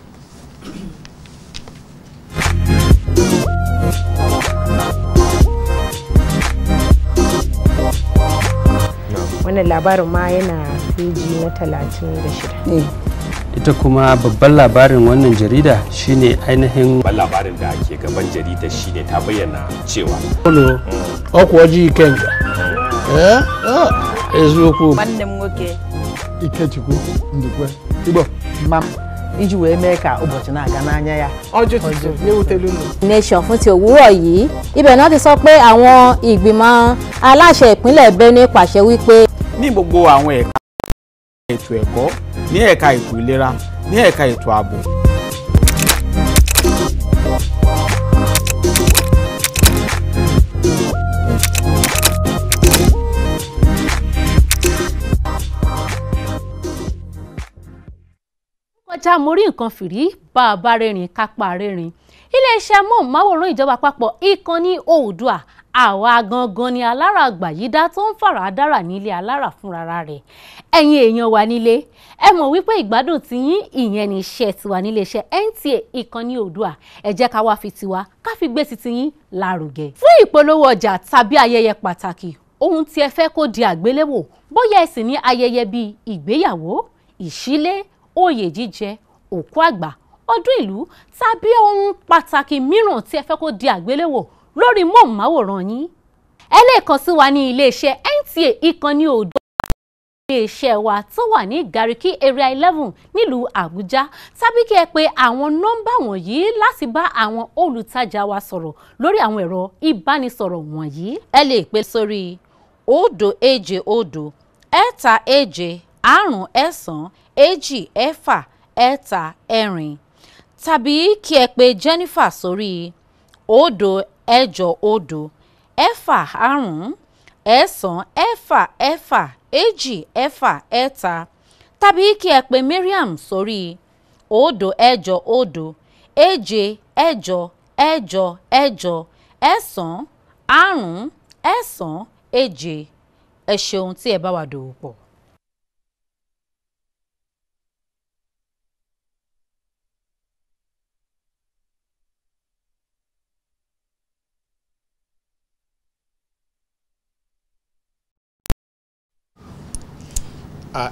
wannan labarin ma yana feji na talatin da shida eh. ita kuma babban labarin wannan jarida shine ainihin babban labarin da ke gaban jarida shine ta bayyana cewa mm. ọkwaji kenka mm. eh? ah, eziokwu nwanne ike nwoke ndị ndukwe igbo mma iji wee mee ka ụbọchị na-aga n'anya ya nation fún ti òwúrọ̀ náà ti sọ pé àwọn aláṣẹ ìpínlẹ̀ Benue pàṣẹ wípé. ní gbogbo àwọn ẹ̀ka ètò ẹ̀kọ́ ní ẹ̀ka ètò ìlera ní ẹ̀ka ètò ààbò. kọjá mo rí nǹkan fìrí bá a bá rẹ́rìn kápá rẹ́rìn iléeṣẹ́ amóhùnmáwòrán ìjọba àpapọ̀ ìkànnì Oòduà àwa gangan ni alára àgbàyídá tó ń fara dára nílé alára fúnra rẹ̀ ẹ̀yin èèyàn wa nílé ẹ mọ̀ wípé ìgbádùn ti yín ìyẹn ní iṣẹ́ tiwa nílé iṣẹ́ NTA ìkànnì Oòduà ẹ jẹ́ ká wá fi tiwa ká fi gbé titi yín lárugẹ. fún ìpolówó ọjà tàbí ayẹyẹ pàtàkì ohun tí ẹ fẹ́ kó di àgbéléwò bóyá ẹ ní ayẹyẹ bíi ìgbéyàwó ìṣílé oyè jíjẹ òkú àgbà ọdún ìlú tàbí ohun pàtàkì mìíràn tí ẹ fẹ́ kó di àgbéléwò lórí móhùnmáwòrán yín ẹ lè kàn sí wa ní iléeṣẹ́ NTA ìkànnì òdo iléeṣẹ́ wa tó wà ní Gariki area eleven nílùú Àbújá tàbí kí ẹ pè àwọn nọ́mbà wọ̀nyí láti bá àwọn olùtajà wa sọ̀rọ̀ lórí àwọn ẹ̀rọ ìbánisọ̀rọ̀ wọ̀nyí. ẹ lè pè sórí òdo èje òdo ẹ̀ta èje àrùn ẹ̀sán èjì ẹ̀fà ẹ̀ta ẹ̀rin tàbí kí ẹ pè Jennifer sórí òdo ẹ̀jọ òdo ẹ̀fà àrún ẹ̀sán ẹ̀fà ẹ̀fà èjì ẹ̀fà ẹ̀ta tàbí kí ẹ pè Mariam sórí òdo ẹ̀jọ òdo èje ẹ̀jọ ẹ̀jọ ẹ̀jọ ẹ̀sán àrún ẹ̀sán èje ẹ ṣeun tí ẹ bá wa dòwò pọ̀.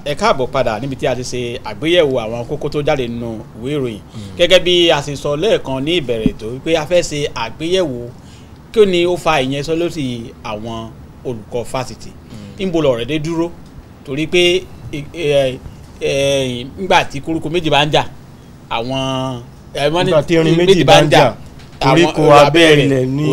ẹ káàbọ̀ padà níbi tí a ti ṣe àgbéyẹ̀wò àwọn kókó tó jáde nínú ìwé ìròyìn hmm. gẹ́gẹ́ bí a ṣe sọ lẹ́ẹ̀kan ní ìbẹ̀rẹ̀ tó wípé a fẹ́ ṣe àgbéyẹ̀wò kí ni ó fa ìyẹn sọ lórí àwọn olùkọ́ fásitì ń hmm. bo lọ̀rẹ́ dé dúró torí pé nígbà tí koríko méjì bá ń jà àwọn nígbà tí irin méjì bá ń jà koríko abẹ́rẹ́ ní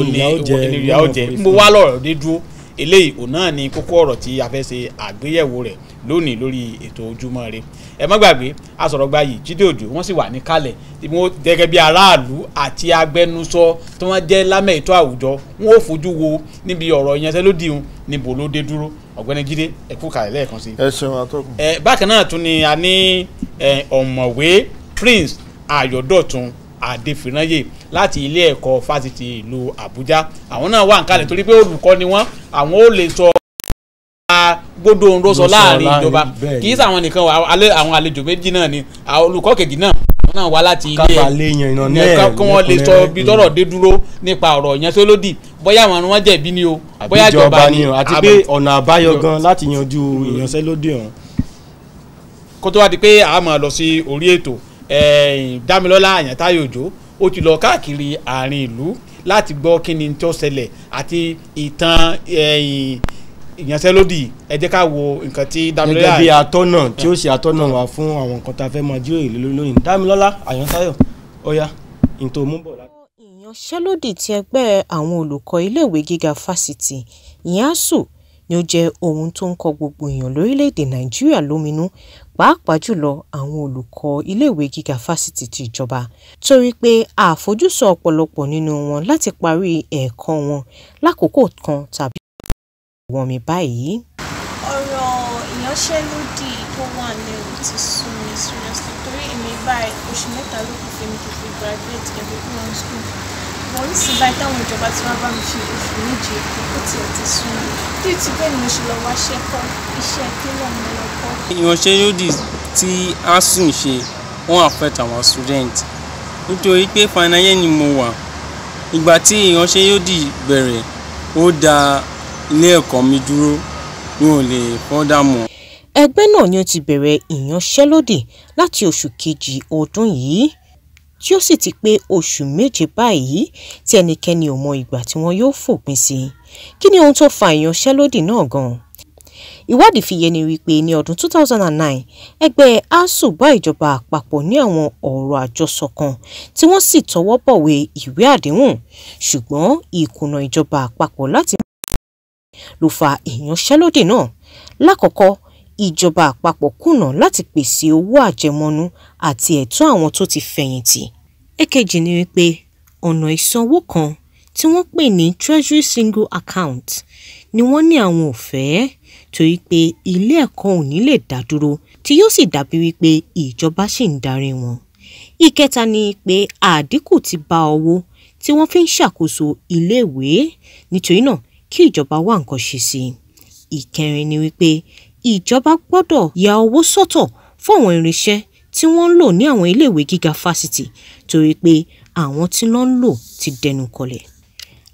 ìyá ó jẹ wá lọ̀rẹ́ dé dúró eléyìí òun náà ni kókó ọ̀rọ̀ tí a fẹ́ ṣe àgbéyẹ̀wò rẹ̀ lónìí lórí ètò ojúmọ́ rẹ ẹ má gbàgbé asọ̀rọ̀gba yìí Jídé Òjó wọ́n sì wà ní kalẹ̀ tí wọ́n gẹ́gẹ́ bí aráàlú àti agbẹnusọ tí wọ́n jẹ́ lámẹ̀ ètò àwùjọ wọ́n ò fojú wo níbi ọ̀rọ̀ ìyanṣẹ́lódì hun níbo ló dé dúró ọ̀gbẹ́ni Jídé ẹ kú kalẹ̀ lẹ́ẹ̀kan sí. ẹ ṣeun atọ́kùn. ẹ bákan náà tún ni a ní ọ̀mọ̀wé Prince Ayọ̀dọ̀tun Adéfìrányè láti ilé ẹ̀kọ́ fásitì ìlú Àbújá àwọn náà wà ń kalẹ̀ torí pé olùkọ́ ni wọ́n àwọn ò lè sọ gbódò ń rọsọ láàrin ìjọba kì í sàwọn nìkan wà àwọn àlejò méjì náà ni olùkọ́ kejì náà náà wá láti ilé ẹ kí wọ́n lè sọ bí tọ́rọ̀ mm. dé dúró nípa ọ̀rọ̀ yẹn tó lódì bóyá àwọn wọn jẹ̀bi ni o bóyá ìjọba ni àti pé ọ̀nà àbáyọ gan láti yanjú ìyanṣẹ́lódì ọ̀hún. kó tó wá di pé a máa lọ sí orí ètò Dámilọ́lá Àyàntáyọ̀ Òjó ó ti lọ káàkiri àárín ìlú láti gbọ́ kí ni tó ṣẹlẹ̀ àti ìtàn ìyanṣẹ́lódì ẹ jẹ́ ká wo nǹkan tí Dámilọ́lá gẹ́gẹ́ bí atọ́nà tí ó ṣe atọ́nà wá fún àwọn nǹkan tá a fẹ́ máa jíròrò lé lónìí Dámilọ́lá Àyànsáyọ̀ ọ̀yá ìtò múbọ̀ láti. ìyanṣẹ́lódì ti ẹgbẹ́ àwọn olùkọ́ iléèwé gíga fásitì ìyáàsù ni ó jẹ́ ohun tó ń kọ gbogbo èèyàn lórílẹ̀‐èdè Nàìjíríà lóminú pàápàá jùlọ àwọn olùkọ́ iléèwé gíga fásitì ti ìjọba torí pé àfojúsùn ọ̀pọ̀lọpọ̀ nínú wọn láti parí ẹ̀kọ́ wọn lákòókò kan tàbí wọ̀n mi báyìí. ọ̀rọ̀ ìyanṣẹ́lódì tó wà lẹ́rù ti sún mi seriously torí èmi báyìí oṣù mẹ́ta ló kù fún mi kí n fi graduate ẹ̀dùn kúrò ní school wọ́n ní sí báyìí táwọn ìjọba ti wá bá mi fi oṣù méje kó kó tiẹ̀ ti sún mi bí ti bẹ́ẹ̀ ni mo ṣe lọ wá ṣẹ́kọ́ iṣẹ́ kílọ̀ mi lọ kọ́. ìyanṣẹ́lódì tí asun ṣe wọ́n affect àwọn student nítorí pé final year ni mo wà ìgbà tí ìyanṣẹ́lódì bẹ̀rẹ̀ ó dáa ilé ẹ̀kọ́ mi dúró mi ò lè fọ́dà mọ́. ẹgbẹ́ náà ni ó ti bẹ̀rẹ̀ ìyanṣẹ́lódì láti oṣù kejì ọdún yìí tí ó sì ti pé oṣù méje báyìí tí ẹnikẹ́ni ò mọ ìgbà tí wọ́n yóò fòpin sí kí ni ohun tó fa ìyanṣẹ́lódì náà gan-an ìwádìí fi yé ni wípé ní ọdún 2009 ẹgbẹ́ asuu bá ìjọba àpapọ̀ ní àwọn ọ̀rọ̀ àjọsọ kan tí wọ́n sì tọwọ́ bọ̀wé ìwé àdéhùn ṣùgbọ́n ìkùnà ìjọba àpapọ̀ láti ló fa ìyanṣẹ́lódì náà lákọ̀ọ́kọ́ ìjọba àpapọ̀ kùnà láti pèsè owó àjẹmọ́nú àti ẹ̀tọ́ àwọn tó ti fẹ̀yìntì èkejì ni wípé ọ̀nà ìsanwó kan tí wọ́n pè ní treasury single account ni wọ́n ní àwọn ò fẹ́ torí pé ilé ẹ̀kọ́ ò ní lè dá dúró tí yóò sì dàbí wípé ìjọba sì ń darí wọn. ìkẹta ni pé àdínkù ti bá owó tí wọ́n fi ń ṣàkóso iléèwé nítorí náà kí ìjọba wá nǹkan ṣe sí i. ìkẹrin ni wípé ìjọba gbọ́dọ̀ ya owó sọ́tọ̀ fún àwọn irinṣẹ́ tí wọ́n ń lò ní àwọn iléèwé gíga fásitì torí pé àwọn tí wọ́n ń lò ti dẹnu kọlẹ̀.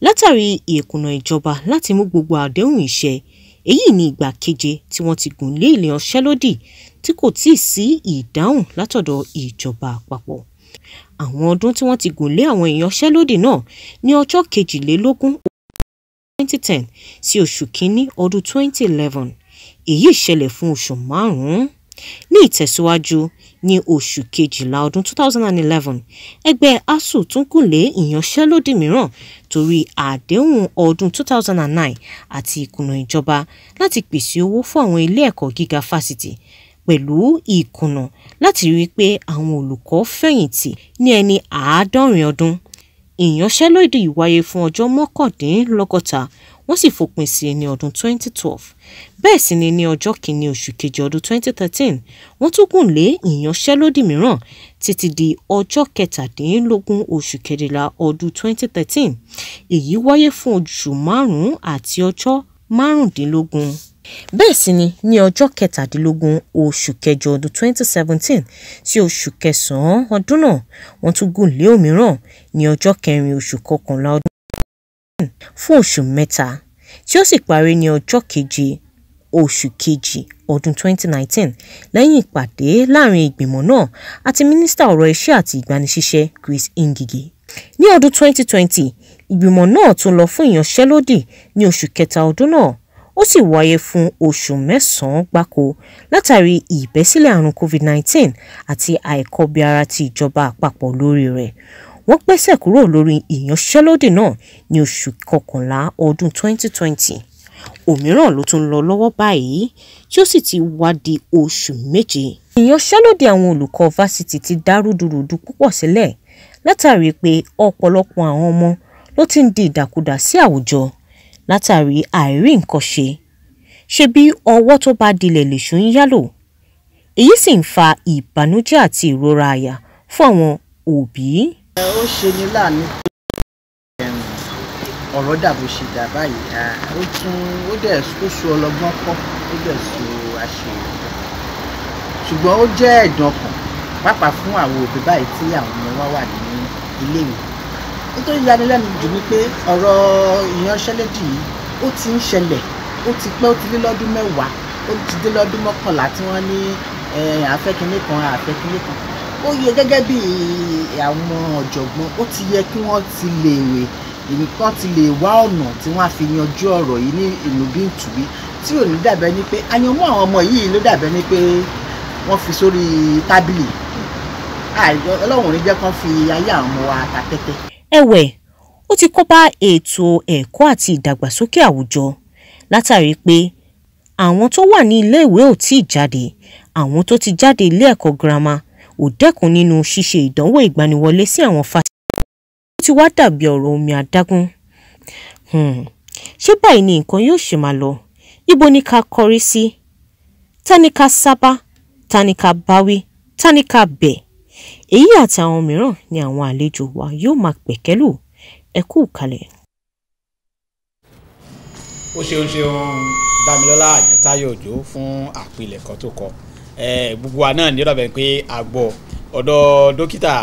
látàrí ìkùnà ìjọba láti mú gbogbo àdéhùn ìṣe èyí ni ìgbà keje tí wọ́n ti gùn lé ilé ọ̀ṣẹ́lódì tí kò tíì sí ìdáhùn látọ̀dọ̀ ìjọba àpapọ̀ àwọn ọdún tí wọ́n ti gùn lé àwọn ìyanṣẹ́lódì náà ní ọjọ́ kejìlélógún 2010 sí oṣù kínní ọdún 2011 èyí ṣẹlẹ̀ fún oṣù márùn-ún. Ní ìtẹ̀síwájú ní oṣù kejìlá ọdún 2011 ẹgbẹ́ asu tún gùnlé ìyanṣẹ́lódì mìíràn torí àdéhùn ọdún 2009 àti ìkùnà ìjọba láti pèsè owó fún àwọn ilé ẹ̀kọ́ gíga fásitì pẹ̀lú ìkùnà láti rí i pé àwọn olùkọ́ fẹ̀yìntì ní ẹni àádọ́rin ọdún. Ìyanṣẹ́lódì wáyé fún ọjọ́ mọ́kàndínlọ́gọ́ta wọ́n sì fòpin sí i ní ọdún 2012. Bẹ́ẹ̀ sì ni ní ọjọ́ kìíní oṣù kejì ọdún 2013 wọ́n tún gùn lé ìyanṣẹ́lódì mìíràn títí di ọjọ́ kẹtàdínlógún oṣù kẹrìnlá ọdún 2013. Èyí wáyé fún oṣù márùn-ún àti ọjọ́ márùndínlógún bẹ́ẹ̀ sì ni ní ọjọ́ kẹtàdínlógún oṣù kẹjọ ọdún 2017 sí oṣù kẹsàn-án ọdún náà wọ́n tún gùn lé òmíràn ní ọjọ́ kẹrin oṣù kọkànlá ọdún 2017 fún oṣù mẹ́ta tí ó sì parí ní ọjọ́ keje oṣù kejì ọdún 2019 lẹ́yìn ìpàdé láàrin ìgbìmọ̀ náà àti mínísítà ọ̀rọ̀ iṣẹ́ àti ìgbanisíṣẹ́ Chris Ngige ní ọdún 2020 ìgbìmọ̀ náà tún lọ fún ìyanṣẹ́lódì ní oṣù kẹta ọdún náà ó sì wáyé fún oṣù mẹ́sàn-án gbáko látàrí ìbẹ́sílẹ̀ àrùn covid-19 àti àìkọbiara ti ìjọba àpapọ̀ lórí rẹ̀ wọ́n gbẹ́sẹ̀ kúrò lórí ìyanṣẹ́lódì náà ní oṣù kọkànlá ọdún 2020 òmíràn ló tún ń lọ lọ́wọ́ báyìí tí ó sì ti wá di oṣù méje. ìyanṣẹ́lódì àwọn olùkọ́ fásitì ti dá rúdurùdu púpọ̀ sílẹ̀ látàrí pé ọ̀pọ̀lọpọ̀ àwọn ọmọ ló ti ń di ìdàkudà sí àwùjọ látàrí àìrí nǹkan ṣe ṣe bí ọwọ́ tó bá dilẹ̀ lèṣù ń yálò èyí sì ń fa ìbànújẹ́ àti ìrora àyà fún àwọn òbí. ó ṣe ní láàánú pé ọ̀rọ̀ dàbò ṣe dà báyìí ó tún ó dẹ̀ ó ọlọ́gbọ́n kọ́ ó dẹ̀ so àṣeyọrí ṣùgbọ́n ó jẹ́ ẹ̀dùn ọkàn pàápàá fún àwọn òbí báyìí tí àwọn ọmọ wa wà ní iléèwé nítorí yanilẹ́nu jù ni pé ọ̀rọ̀ ìyanṣẹ́lódì yìí ó ti ń ṣẹlẹ̀ ó ti pẹ́ ó ti dé lọ́dún mẹ́wàá ó ti dé lọ́dún mọ́kànlá tí wọ́n ní àfẹ́kínlé kan àfẹ́kínlé kan ó yẹ gẹ́gẹ́ bí àwọn ọ̀jọ̀gbọ́n ó ti yẹ kí wọ́n ti lè wè nǹkan ti lè wá ọ̀nà tí wọ́n á fi yanjú ọ̀rọ̀ yìí ní ìlú bí ìtùbí tí ò ní dàbẹ́ ni pé àyànmọ́ àwọn ọmọ yìí ló dàbẹ́ ni pé wọ́n fi sórí tábìlì ọlọ́run ò ní jẹ́ kán fi ayé àwọn ọmọ wa ta tẹ́tẹ́ ẹ̀wẹ̀ ó ti kóbá ètò ẹ̀kọ́ àti ìdàgbàsókè àwùjọ látàrí pé àwọn tó wà ní iléèwé ò tí ì jáde àwọn tó ti jáde ilé ẹ̀kọ́ girama ò dẹ́kun nínú ṣíṣe ìdánwò ìgbaniwọlé sí àwọn fásitì ó ti wá dàbí ọ̀rọ̀ omi adágún hmm, ṣé báyìí ni nǹkan yóò ṣe máa lọ ibo ni ká kọrí sí ta ká sábà ta ká báwí ta ká bẹ̀ èyí àti àwọn mìíràn ni àwọn àlejò wa yóò máa pẹ̀kẹ́lù ẹ kú kalẹ̀. ó ṣeun ṣeun Dámilọ́lá Àyántáyọ̀ Òjó fún àpilẹ̀kọ tó kọ gbogbo wa náà nírọ̀bẹ̀ pé a gbọ́ ọ̀dọ̀ dókítà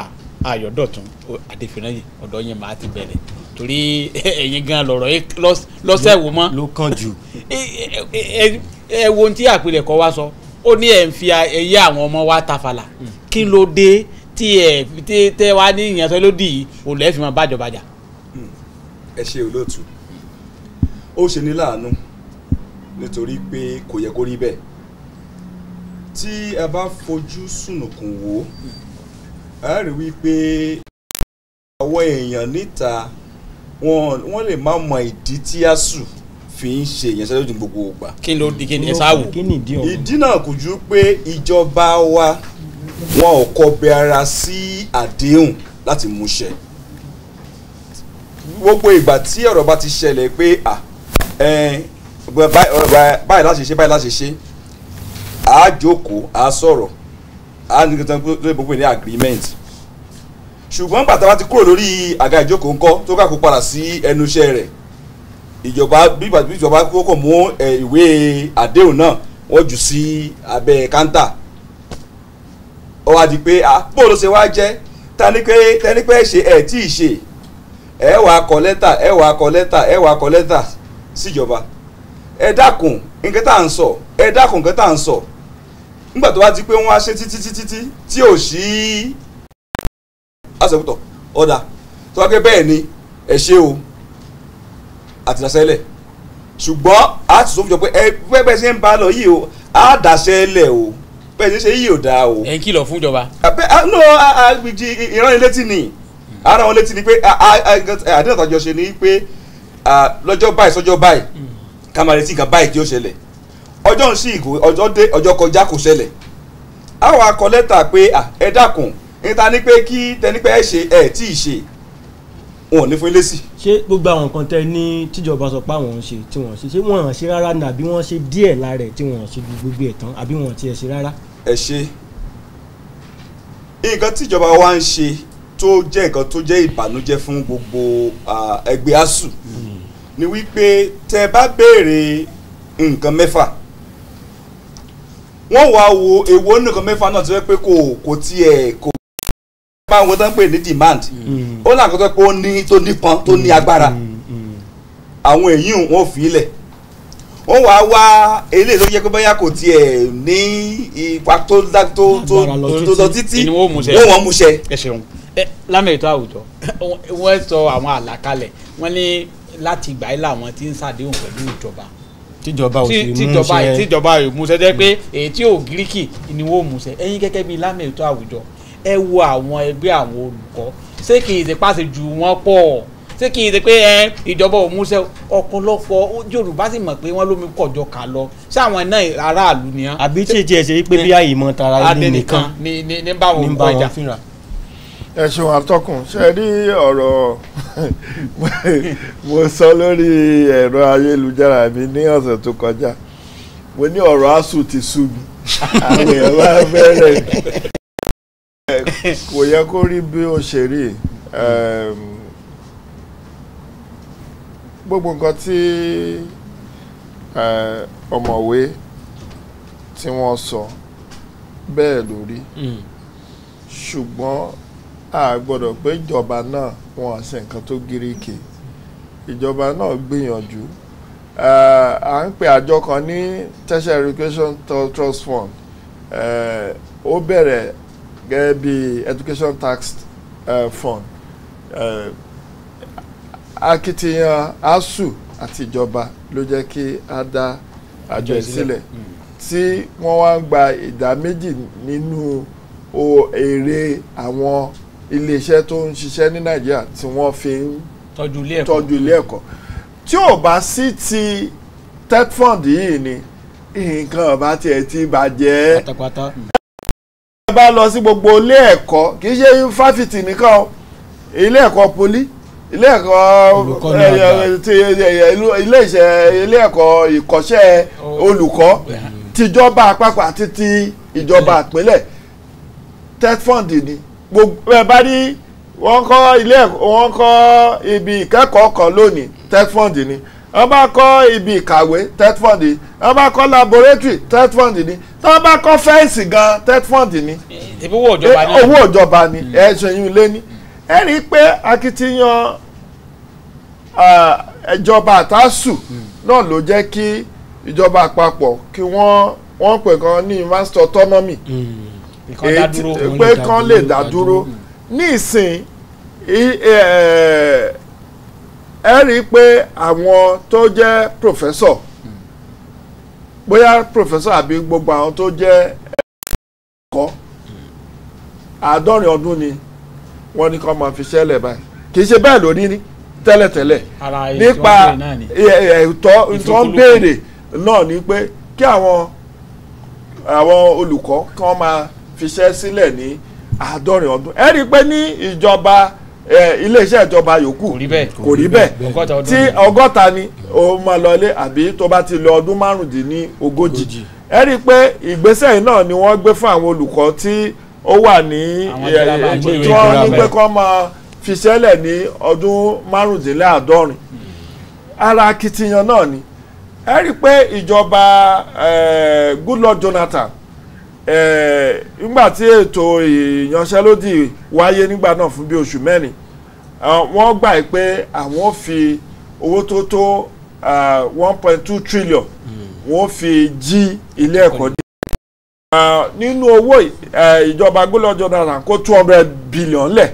Ayọ̀dọ̀tún Adéfìnáyè ọ̀dọ̀ yẹn máa ti bẹ̀rẹ̀ torí ẹ̀yin gan lọ̀rọ̀ lọ́sẹ̀ wo mọ́. ló kàn jù. ẹ wo ohun tí àpilẹ̀kọ wa sọ ó ní ẹ̀ ń fi ẹyẹ àwọn ọmọ wa tafàlà hmm. kí ló dé tí ẹ tí tẹ wá ní ìyànsọ lódì yìí ò lẹ́ẹ̀ fi máa bájọba jà. ẹ ṣe olóòtú ó ṣe ní láàánú nítorí pé kò yẹ kó rí bẹ́ẹ̀ tí ẹ bá fojú sùnùkùn wò ẹ rí wípé àwọn èèyàn níta wọ́n lè má mọ ìdí tí a sùn fi ń ṣe ìyanṣẹ́lẹ̀ òdì gbogbo ìgbà. kí di kí ni ẹ sáà ìdí náà kò ju pé ìjọba wa wọn ò kọbi ara sí àdéhùn láti múṣẹ gbogbo ìgbà tí ọ̀rọ̀ bá ti ṣẹlẹ̀ pé à báyìí láti ṣe báyìí láti ṣe àá jókòó àá sọ̀rọ̀ àá ní kankan tó lè gbogbo ní agreement ṣùgbọ́n bàtà bá ti kúrò lórí àga ìjókòó ńkọ́ tó kà kó padà sí ẹnu iṣẹ́ rẹ̀ ìjọba bí ìjọba kókò mú ìwé àdéhùn náà wọ́n jù sí abẹ́ káńtà ó wá di pé ah bó ló ṣe wá jẹ́ tẹ́nipẹ́ tẹ́nipẹ́ ṣe ẹ̀ tí ì ṣe ẹ wàá kọ lẹ́tà ẹ wàá kọ lẹ́tà ẹ wàá kọ lẹ́tà síjọba ẹ dákun nǹkan tá à ń sọ ẹ dákun nǹkan tá à ń sọ nígbà tó wá di pé wọ́n á ṣe títí títí tí tí ò sí àṣepútọ̀ ọ̀dà tó wá pé bẹ́ẹ̀ ni ẹ ṣe o àtìdásẹ́lẹ̀ ṣùgbọ́n a ti sọ fún jọ pé ẹ pẹ́ bẹ́ẹ̀ ṣe ń bá lọ yìí o á dàṣẹ́ o bẹ́ẹ̀ ṣe yìí ò dáa o. ẹ ń kìlọ̀ fún ìjọba. abẹ́ no agbèjì ìránnilétí ni ara wọn létí ni pé àdéhùn àtàjọ ṣe ni pé lọ́jọ́ báyìí sọ́jọ́ báyìí hmm. ká máa retí nǹkan báyìí tí ó ṣẹlẹ̀ ọjọ́ ń sí ìgò ọjọ́ dé ọjọ́ kọjá kò ṣẹlẹ̀ àwọn akọ lẹ́tà pé ẹ dákun níta ni pé kí tẹnipẹ́ ẹ ṣe ẹ tí ì ṣe wọn ò ní fún ilé sí. ṣé gbogbo àwọn nǹkan tẹ ní tíjọba sọ pé àwọn ń ṣe tí wọn ṣe ṣé wọn ṣe rárá ni àbí wọn ṣe díẹ̀ lára ẹ̀ tí wọn ṣe gbogbo ẹ̀ tán àbí wọn tiẹ̀ ṣe rárá ẹ ṣe nǹkan tíjọba wa ń ṣe tó jẹ́ nǹkan tó jẹ́ ìbànújẹ́ fún gbogbo ẹgbẹ́ asuu ni wípé tẹ bá béèrè nǹkan mẹ́fà wọ́n wá wo èwo nǹkan mẹ́fà náà ti fẹ́ pé kò kò tiẹ̀ kò máa wọ́n tó ń pè ní demand mm. ó làkọ́tọ́ pé ó ní tó nípọn tó ní agbára mm. Mm. àwọn èyí wọ́n fi ilẹ̀ wọ́n wá wá eléyìí ló yẹ pé bóyá kò tiẹ̀ ní ipa tó tó tó lọ títí wọ́n wọ́n mú ṣe. ẹ ṣeun lámì ètò àwùjọ wọ́n sọ àwọn àlàkalẹ̀ wọ́n ní láti ìgbà yìí làwọn ti ń ṣàdéhùn pẹ̀lú ìjọba tíjọba ò sì mú ṣe tíjọba ò mú ṣe jẹ́ pé èyí ò gíríkì ni wọ́n mú ṣe ẹ̀yin gẹ́gẹ́ bíi lámì ètò àwùjọ ẹ wo àwọn ẹgbẹ́ àwọn olùkọ́ ṣé kì í ṣe pàṣẹ ju wọn pọ̀ ṣé kì í ṣe pé ẹ ìjọba ò múṣẹ ọ̀pọ̀lọpọ̀ Yorùbá sì mọ̀ pé wọ́n lómi kọjọ kà lọ sáwọn náà aráàlú ni. àbí tí èjì ẹsẹ̀ pé bí àyè mọ̀ tara ilé nìkan ní bá wọn kọ ìjà. ẹ ṣeun atọ́kùn ṣe rí ọ̀rọ̀ mo sọ lórí ẹ̀rọ ayélujára mi ní ọ̀sẹ̀ tó kọjá mo ní ọ̀rọ̀ asuu ti sú mi àwọn èèyàn bá bẹ̀rẹ̀ kò yẹ kó rí bí ó ṣe rí gbogbo nǹkan tí ọ̀mọ̀wé tí wọ́n sọ bẹ́ẹ̀ lórí hmm. ṣùgbọ́n a gbọ́dọ̀ pé ìjọba náà wọn àṣẹ nǹkan tó gíríkì ìjọba náà gbìyànjú à ń pè àjọ kan ní tertiary education trust fund ó bẹ̀rẹ̀ gẹ́gẹ́ bí education tax fund akitiyan asu àti ìjọba ló jẹ́ kí a dá àjọ ìsílẹ̀ hmm. tí wọ́n wá ń gba ìdá méjì nínú èrè àwọn iléeṣẹ́ tó ń ṣiṣẹ́ ní nàìjíríà tí wọ́n fi ń tọ́jú ilé ẹ̀kọ́ tí ò bá sí ti tetfund yìí ni nǹkan ọba tiẹ̀ ti bàjẹ́ pátápátá hmm. bá lọ sí gbogbo ilé ẹ̀kọ́ kì í ṣe fáfitì nìkan ilé ẹ̀kọ́ poli ilé ẹ̀kọ́ eh, eh, eh, ilé iṣẹ́ ilé ẹ̀kọ́ ìkọ́ṣẹ́ olùkọ́ tìjọba àpapọ̀ àti ti ìjọba àpínlẹ̀ tetfund ni gbogbo ẹ bá rí wọ́n kọ́ ilé ẹ̀kọ́ wọ́n kọ́ ibi ìkẹ́kọ̀ọ́ kan lónìí tetfund ni wọ́n bá kọ́ ibi ìkàwé tetfund ni wọ́n bá kọ́ laboratory tetfund ni wọ́n bá kọ́ fẹ́ǹsì gan tetfund ni owó ìjọba ni ẹ̀ ṣẹ́yìn lé ní ẹ rí i pé akitiyan ìjọba àtàsù náà ló jẹ́ kí ìjọba àpapọ̀ kí wọ́n wọ́n pè kan ní master autonomy hmm. pé kan lè dá dúró ní ìsìn ẹ rí i pé àwọn tó jẹ́ professor bóyá professor àbí gbogbo àwọn tó jẹ́ ẹ̀kọ́ àádọ́rin ọdún ni. Mm wọ́n ní kọ́ máa fi ṣẹlẹ̀ báyìí kì í ṣe bẹ́ẹ̀ lórí ní tẹ́lẹ̀tẹ́lẹ̀ nípa ẹ̀tọ́ tó ń béèrè náà ni pé kí àwọn àwọn olùkọ́ kí wọ́n máa fiṣẹ́ sílẹ̀ ní àádọ́rin ọdún ẹ rí i pé ní ìjọba iléeṣẹ́ ìjọba yòókù kò rí bẹ́ẹ̀ tí ọgọ́ta ni o máa lọ ilé àbí tó bá ti lọ ọdún márùndínlógójì ẹ rí i pé ìgbésẹ̀ yìí náà ni wọ́n gbé fún àwọn olùkọ́ tí ó wà ní tí wọ́n ní pé kọ́ máa fi sẹ́lẹ̀ ní ọdún márùndínláàádọ́rin ara akitiyan náà ni ẹ rí i pé ìjọba Goodluck Jonathan nígbà tí ètò ìyanṣẹ́lódì wáyé nígbà náà fún bí oṣù mẹ́rin wọ́n gbà pé àwọn fi owó tó tó one point two trillion hmm. wọ́n fi jí ilé ẹ̀kọ́ dé nínú owó eh, ìjọba Goodluck Jonathan kó two hundred billion lẹ̀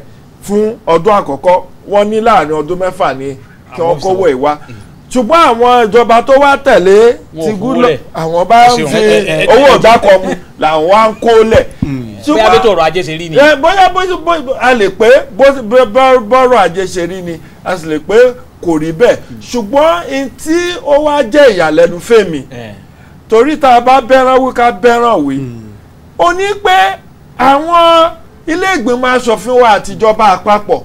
fún ọdún àkọ́kọ́ wọ́n ní láàrin ọdún mẹ́fà ni kí wọ́n kówó ìwá hmm. ṣùgbọ́n àwọn ìjọba tó wá tẹ̀lé ti Goodluck àwọn bá ń fi owó ìdákọ̀ mu làwọn wá ń kó lẹ̀. Hmm. bóyá bí tòrò ajé ṣe rí ni. bóyá a lè pé bọ́rọ̀ ajé ṣe rí ni a sì lè pé kò rí bẹ́ẹ̀ hmm. ṣùgbọ́n tí ó wá jẹ́ ìyàlẹ́nu fèmí. Eh torí tá a bá bẹ́ràn wí ká bẹ́ràn wí hmm. ó ní pé àwọn ilé ìgbìmọ̀ asòfin wa àtijọba àpapọ̀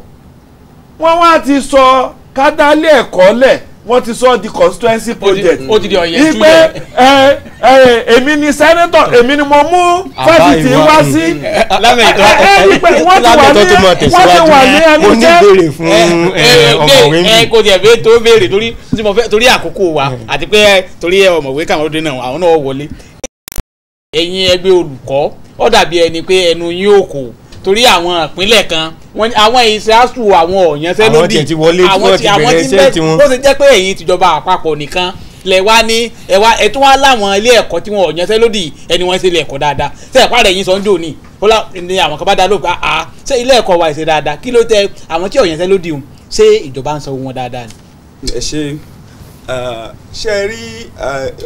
wọ́n wá ti sọ kádálé ẹ̀kọ́ lẹ̀ wọ́n ti sọ di constituency project ipe ẹ ẹ èmi ni senator èmi ni mo mú fásitì wá sí ẹ ẹ ipe wọ́n ti wà ní wọ́n ti wà ní ẹnu jẹ́ ọmọwé mi. ẹ kò tiẹ̀ bẹ́ẹ̀ tó béèrè torí àkókò wa àti pé torí ọmọwé kàwọn ọdún náà àwọn náà wọlé. ẹ̀yin ẹgbẹ́ olùkọ́ ó dàbí ẹni pé ẹnu yín ò kò torí àwọn ìpínlẹ̀ kan wọn àwọn ìṣáàtù àwọn ọ̀yànṣẹ́ lódì àwọn tí àwọn tí bẹ́ẹ̀ tó ṣe jẹ́ pé ẹ̀yin tìjọba àpapọ̀ nìkan lẹ wá ní ẹ wá ẹ tún wá láwọn ilé ẹ̀kọ́ tí wọn ọ̀yànṣẹ́ lódì ẹni wọn ṣe ilé ẹ̀kọ́ dáadáa ṣe ẹ̀pá rẹ̀ yín sọ ń dò ní ó lá ní àwọn kan bá dá lóògùn àá ṣe ilé ẹ̀kọ́ wa ṣe dáadáa kí ló tẹ àwọn tí ọ̀yànṣẹ́ lódì hùn ṣé ìjọba ń sọ wọn dáadáa ni. ẹ ṣe ṣe ẹ rí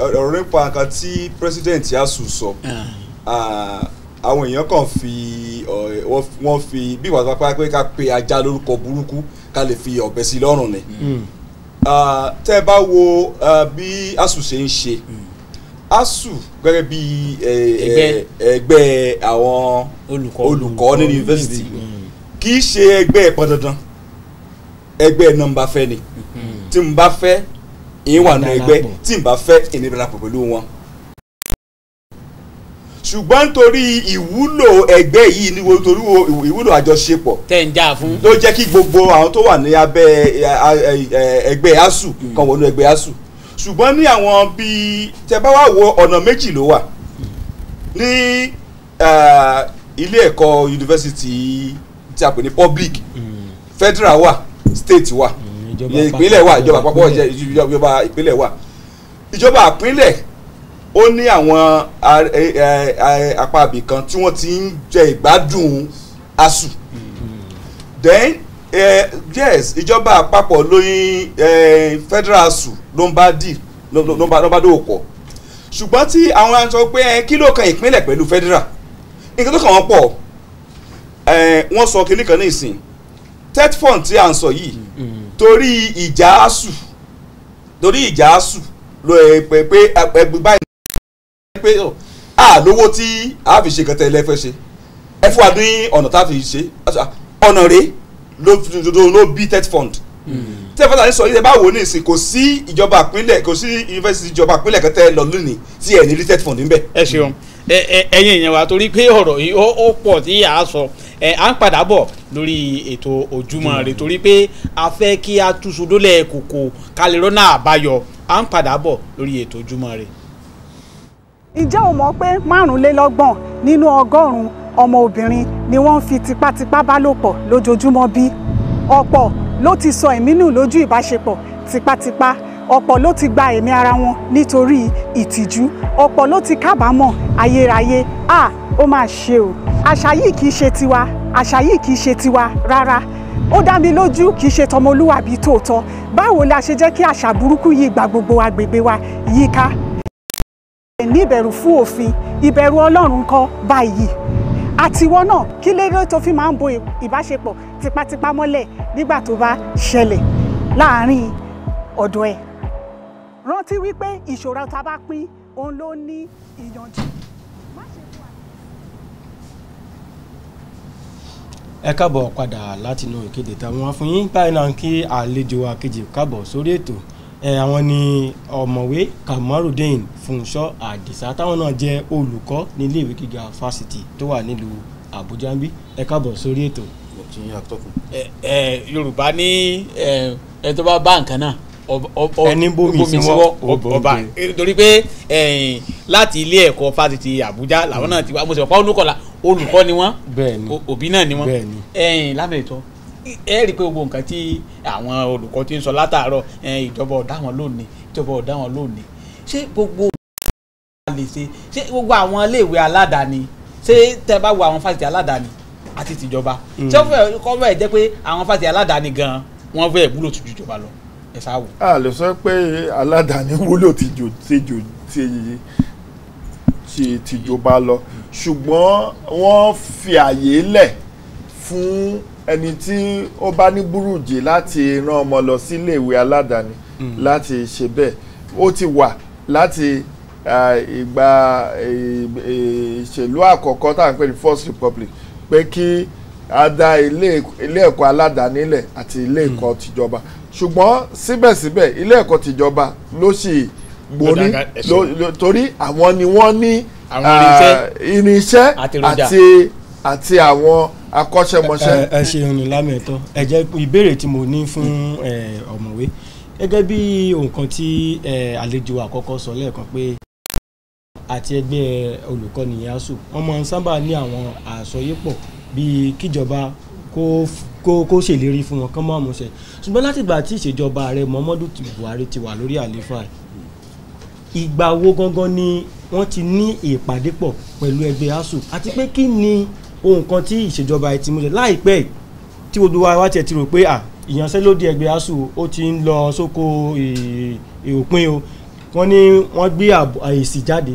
ọ̀rọ̀ nípa kan tí pírẹsidẹ̀ntì asùn sọ ah àwọn èèyàn kàn fi wọ́n fi bí ìwà pápá pé ká pe ajá lórúkọ burúkú ká lè fi ọ̀bẹ sí lọ́rùn ni hmm. tẹ́ ẹ bá wo bí asù ṣe ń ṣe hmm. asu gẹ́gẹ́ bí ẹgbẹ́ àwọn olùkọ́ ní yunifásitì hmm. kì í ṣe ẹgbẹ́ ẹ̀pọ̀ dandan ẹgbẹ́ náà fẹ́ ni tí n bá fẹ́ ìyín wà nù ẹgbẹ́ tí n bá fẹ́ ìnira pẹ̀lú wọn ṣùgbọ́n nítorí ìwúlò ẹgbẹ́ yìí ni torí ìwúlò àjọṣepọ̀ tẹ̀ ń jà fún ló jẹ́ kí gbogbo àwọn tó wà ní abẹ́ ẹgbẹ́ asu kan wọnú ẹgbẹ́ asu ṣùgbọ́n ní àwọn bíi tẹ bá wà wo ọ̀nà méjì ló wà ní ilé ẹ̀kọ́ yunifásitì tí a pè ní public hmm. federal wa state wa hmm, ìpínlẹ̀ wà ìjọba àpapọ̀ ìjọba ìpínlẹ̀ wà ìjọba àpínlẹ̀ ó ní àwọn e, e, apá àbí kan tí wọ́n ti ń jẹ ìgbádùn asu then eh, yes ìjọba àpapọ̀ lóyún eh, federal asu ló ń bá dì ló ń bá dòwò pọ̀ ṣùgbọ́n tí àwọn aṣọ pé kí ló kan ìpínlẹ̀ pẹ̀lú federal nǹkan tó kàn wọ́n pọ̀ e, wọ́n sọ kinní kan ní ìsìn tetfon tí à ń sọ yìí torí ìjà asu torí ìjà asu ló ẹ pé pé ẹgbẹ́ báyìí pé à oh, lówó tí a fi ṣe kẹtẹ ilẹ̀ fẹ́ ṣe ẹ fún wa ní ọ̀nà tá a fi ṣe ah, ọ̀nà rẹ̀ ló bí tech fund hmm. tí ẹ fọ́nà ní sọ yìí ẹ bá wò ní ìsìn kò sí ìjọba àpínlẹ̀ kò sí yunifásitì ìjọba àpínlẹ̀ kẹtẹ lọ lónìí tí ẹ ní rí tech fund níbẹ̀. ẹ ṣeun ẹ̀yin èèyàn wa torí pé ọ̀rọ̀ yìí ó pọ̀ tí a sọ ẹ à ń padà bọ̀ lórí ètò ojúmọ́ rẹ hmm. torí pé a fẹ́ kí a túṣu dólẹ̀ kòkò kálẹ̀ rọ́nà àbáyọ à ń padà bọ̀ lórí ètò ojúmọ́ rẹ ǹjẹ́ o mọ̀ pé márùnlélọ́gbọ̀n nínú ọgọ́rùn-ún ọmọ obìnrin ni wọ́n ń fi tipátipá bá lò pọ̀ lójoojúmọ́ bí? ọ̀pọ̀ ló ti sọ ẹ̀mí nù lójú ìbáṣepọ̀ tipátipá ọ̀pọ̀ ló ti gba ẹ̀mí ara wọn nítorí ìtìjú ọ̀pọ̀ ló ti kábàámọ̀ ayérayé à ó máa ṣe o àṣà yìí kì í ṣe tiwa àṣà yìí kì í ṣe tiwa rárá ó dá mi lójú kì í ṣe tọmọlúwàbí tòótọ́ báwo la ṣe jẹ́ kí àṣà burúkú yìí gba gbogbo agbègbè wa yíká ní ìbẹ̀rù fún òfin ìbẹ̀rù ọlọ́run kọ́ báyìí àtiwọ́ náà kí lérò tó fi máa ń bo ìbáṣepọ̀ tipátipá mọ́lẹ̀ nígbà tó bá ṣẹlẹ̀ láàárín ọ̀dọ̀ ẹ̀. rántí wípé ìṣòro tá a bá pín òun ló ní ìyànjú. ẹ káàbọ̀ padà látinú ìkéde táwọn afúnyín báyìí náà kí àlejò wa káàbọ̀ sórí ètò àwọn ni ọ̀mọ̀wé Kamarudeen Fúnṣọ́ Àdìsá táwọn náà jẹ́ olùkọ́ ní iléèwé gíga fásitì tó wà nílùú Àbújá ń bí ẹ káàbọ̀ sórí ètò. Yorùbá ní ẹ tó bá bá nǹkan náà ẹni bómi síwọ́ ọba torí pé láti ilé ẹ̀kọ́ fásitì Àbújá làwọn náà ti wá mo sì mọ̀ pa olùkọ́ ni wọ́n òbí náà ni wọ́n lábẹ́ ẹ rí i pé gbogbo nǹkan tí àwọn olùkọ́ ti ń sọ látàárọ̀ ìjọba ọ̀dá wọn lónìí ìjọba ọ̀dá wọn lónìí ṣé gbogbo lè ṣe ṣé gbogbo àwọn iléèwé aládàáni ṣé tẹ bá wo àwọn fásitì aládàáni àti tìjọba mm. ṣé ó fẹ́ kọ́ bẹ́ẹ̀ jẹ́ pé àwọn fásitì aládàáni gan-an wọ́n fẹ́ wúlò tó ju ìjọba lọ ẹ sá wò. a lè sọ pé aládàáni wúlò ti jò tìjọba lọ ṣùgbọ́n wọ́n fi àyè lẹ̀ fún ẹni tí ó bá ní burújì láti rán ọmọ lọ sí iléèwé aládàáni hmm. láti ṣe bẹ́ẹ̀ ó ti wà láti ìgbà ìṣèlú àkọ́kọ́ tá à ń pè ní first republic pé kí a dá ilé ẹ̀kọ́ aládàáni lẹ̀ àti ilé hmm. ẹ̀kọ́ tìjọba ṣùgbọ́n síbẹ̀síbẹ̀ ilé ẹ̀kọ́ tìjọba ló sì gborí torí àwọn ni wọ́n ní irinṣẹ́ àti àti àwọn akọ́ṣẹ́mọṣẹ́. ẹ ṣeun ní lámẹ̀tọ́ ẹ jẹ́ ìbéèrè tí mo ní fún ọ̀mọ̀wé gẹ́gẹ́ bí nǹkan tí àlejò àkọ́kọ́ sọ lẹ́ẹ̀kan pé àti ẹgbẹ́ olùkọ́ni ASUU wọ́n máa ń sábà ní àwọn àsọyépọ̀ bíi kíjọba kó kó ṣèlérí fún wọn kán máa mú ṣẹ ṣùgbọ́n látìgbà tí ìṣèjọba ààrẹ Muhammadu Buhari ti wà lórí àlééfà ìgbà wo gangan ni wọ́n ti ní ìpàdé pọ̀ pẹ̀lú ẹgbẹ́ ASUU àti pé kí ni ohun kan tí ìṣèjọba ẹ ti mú ṣe láìpẹ́ tí gbogbo wa wá tiẹ̀ ti rò pé à ìyanṣẹ́lódì ẹgbẹ́ asuu ó ti ń lọ sóko òpin o wọ́n ní wọ́n gbé èsì jáde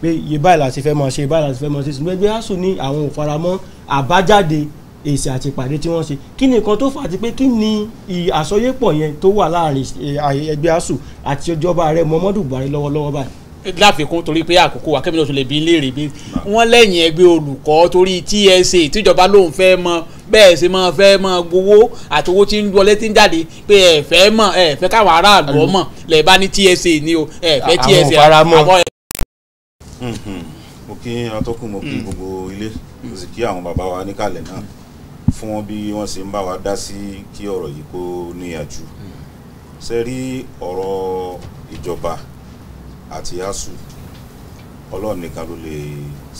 pé iye báyìí la ti fẹ́ mọ̀ ṣe iye báyìí la ti fẹ́ mọ̀ ṣe ṣùgbọ́n ẹgbẹ́ asuu ní àwọn ò faramọ́ àbájáde èsì àti ìpàdé tí wọ́n ṣe kí ni nǹkan tó fà á ti pé kí ni àsọyépọ̀ yẹn tó wà láàrin ẹgbẹ́ asuu àti ìjọba ààrẹ Muhammadu Buhari lọ́wọ́lọ́wọ́ báyìí láfikún torí pé àkókò wa kẹ́mi náà tún lè bí léèrè bí wọ́n lẹ́yìn ẹgbẹ́ olùkọ́ torí TSA tíjọba lòun fẹ́ mọ bẹ́ẹ̀ ṣe máa fẹ́ máa gbowó àti owó tí ń wọlé tí ń jáde pé ẹ fẹ́ mọ̀ ẹ fẹ́ káwọn aráàlú ọmọ lẹ̀ bá ní TSA ni o ẹ fẹ́ TSA àwọn ẹ. Mhm. mo kí atọ́kùn mo kí mm. gbogbo ilé mo sì kí àwọn bàbá wa níkàlẹ̀ náà fún wọn bí wọ́n ṣe ń bá wa dá sí kí ọ̀rọ̀ yìí kó níyàjú mm. ìjọba. àti asu ọlọ́run nìkan ló lè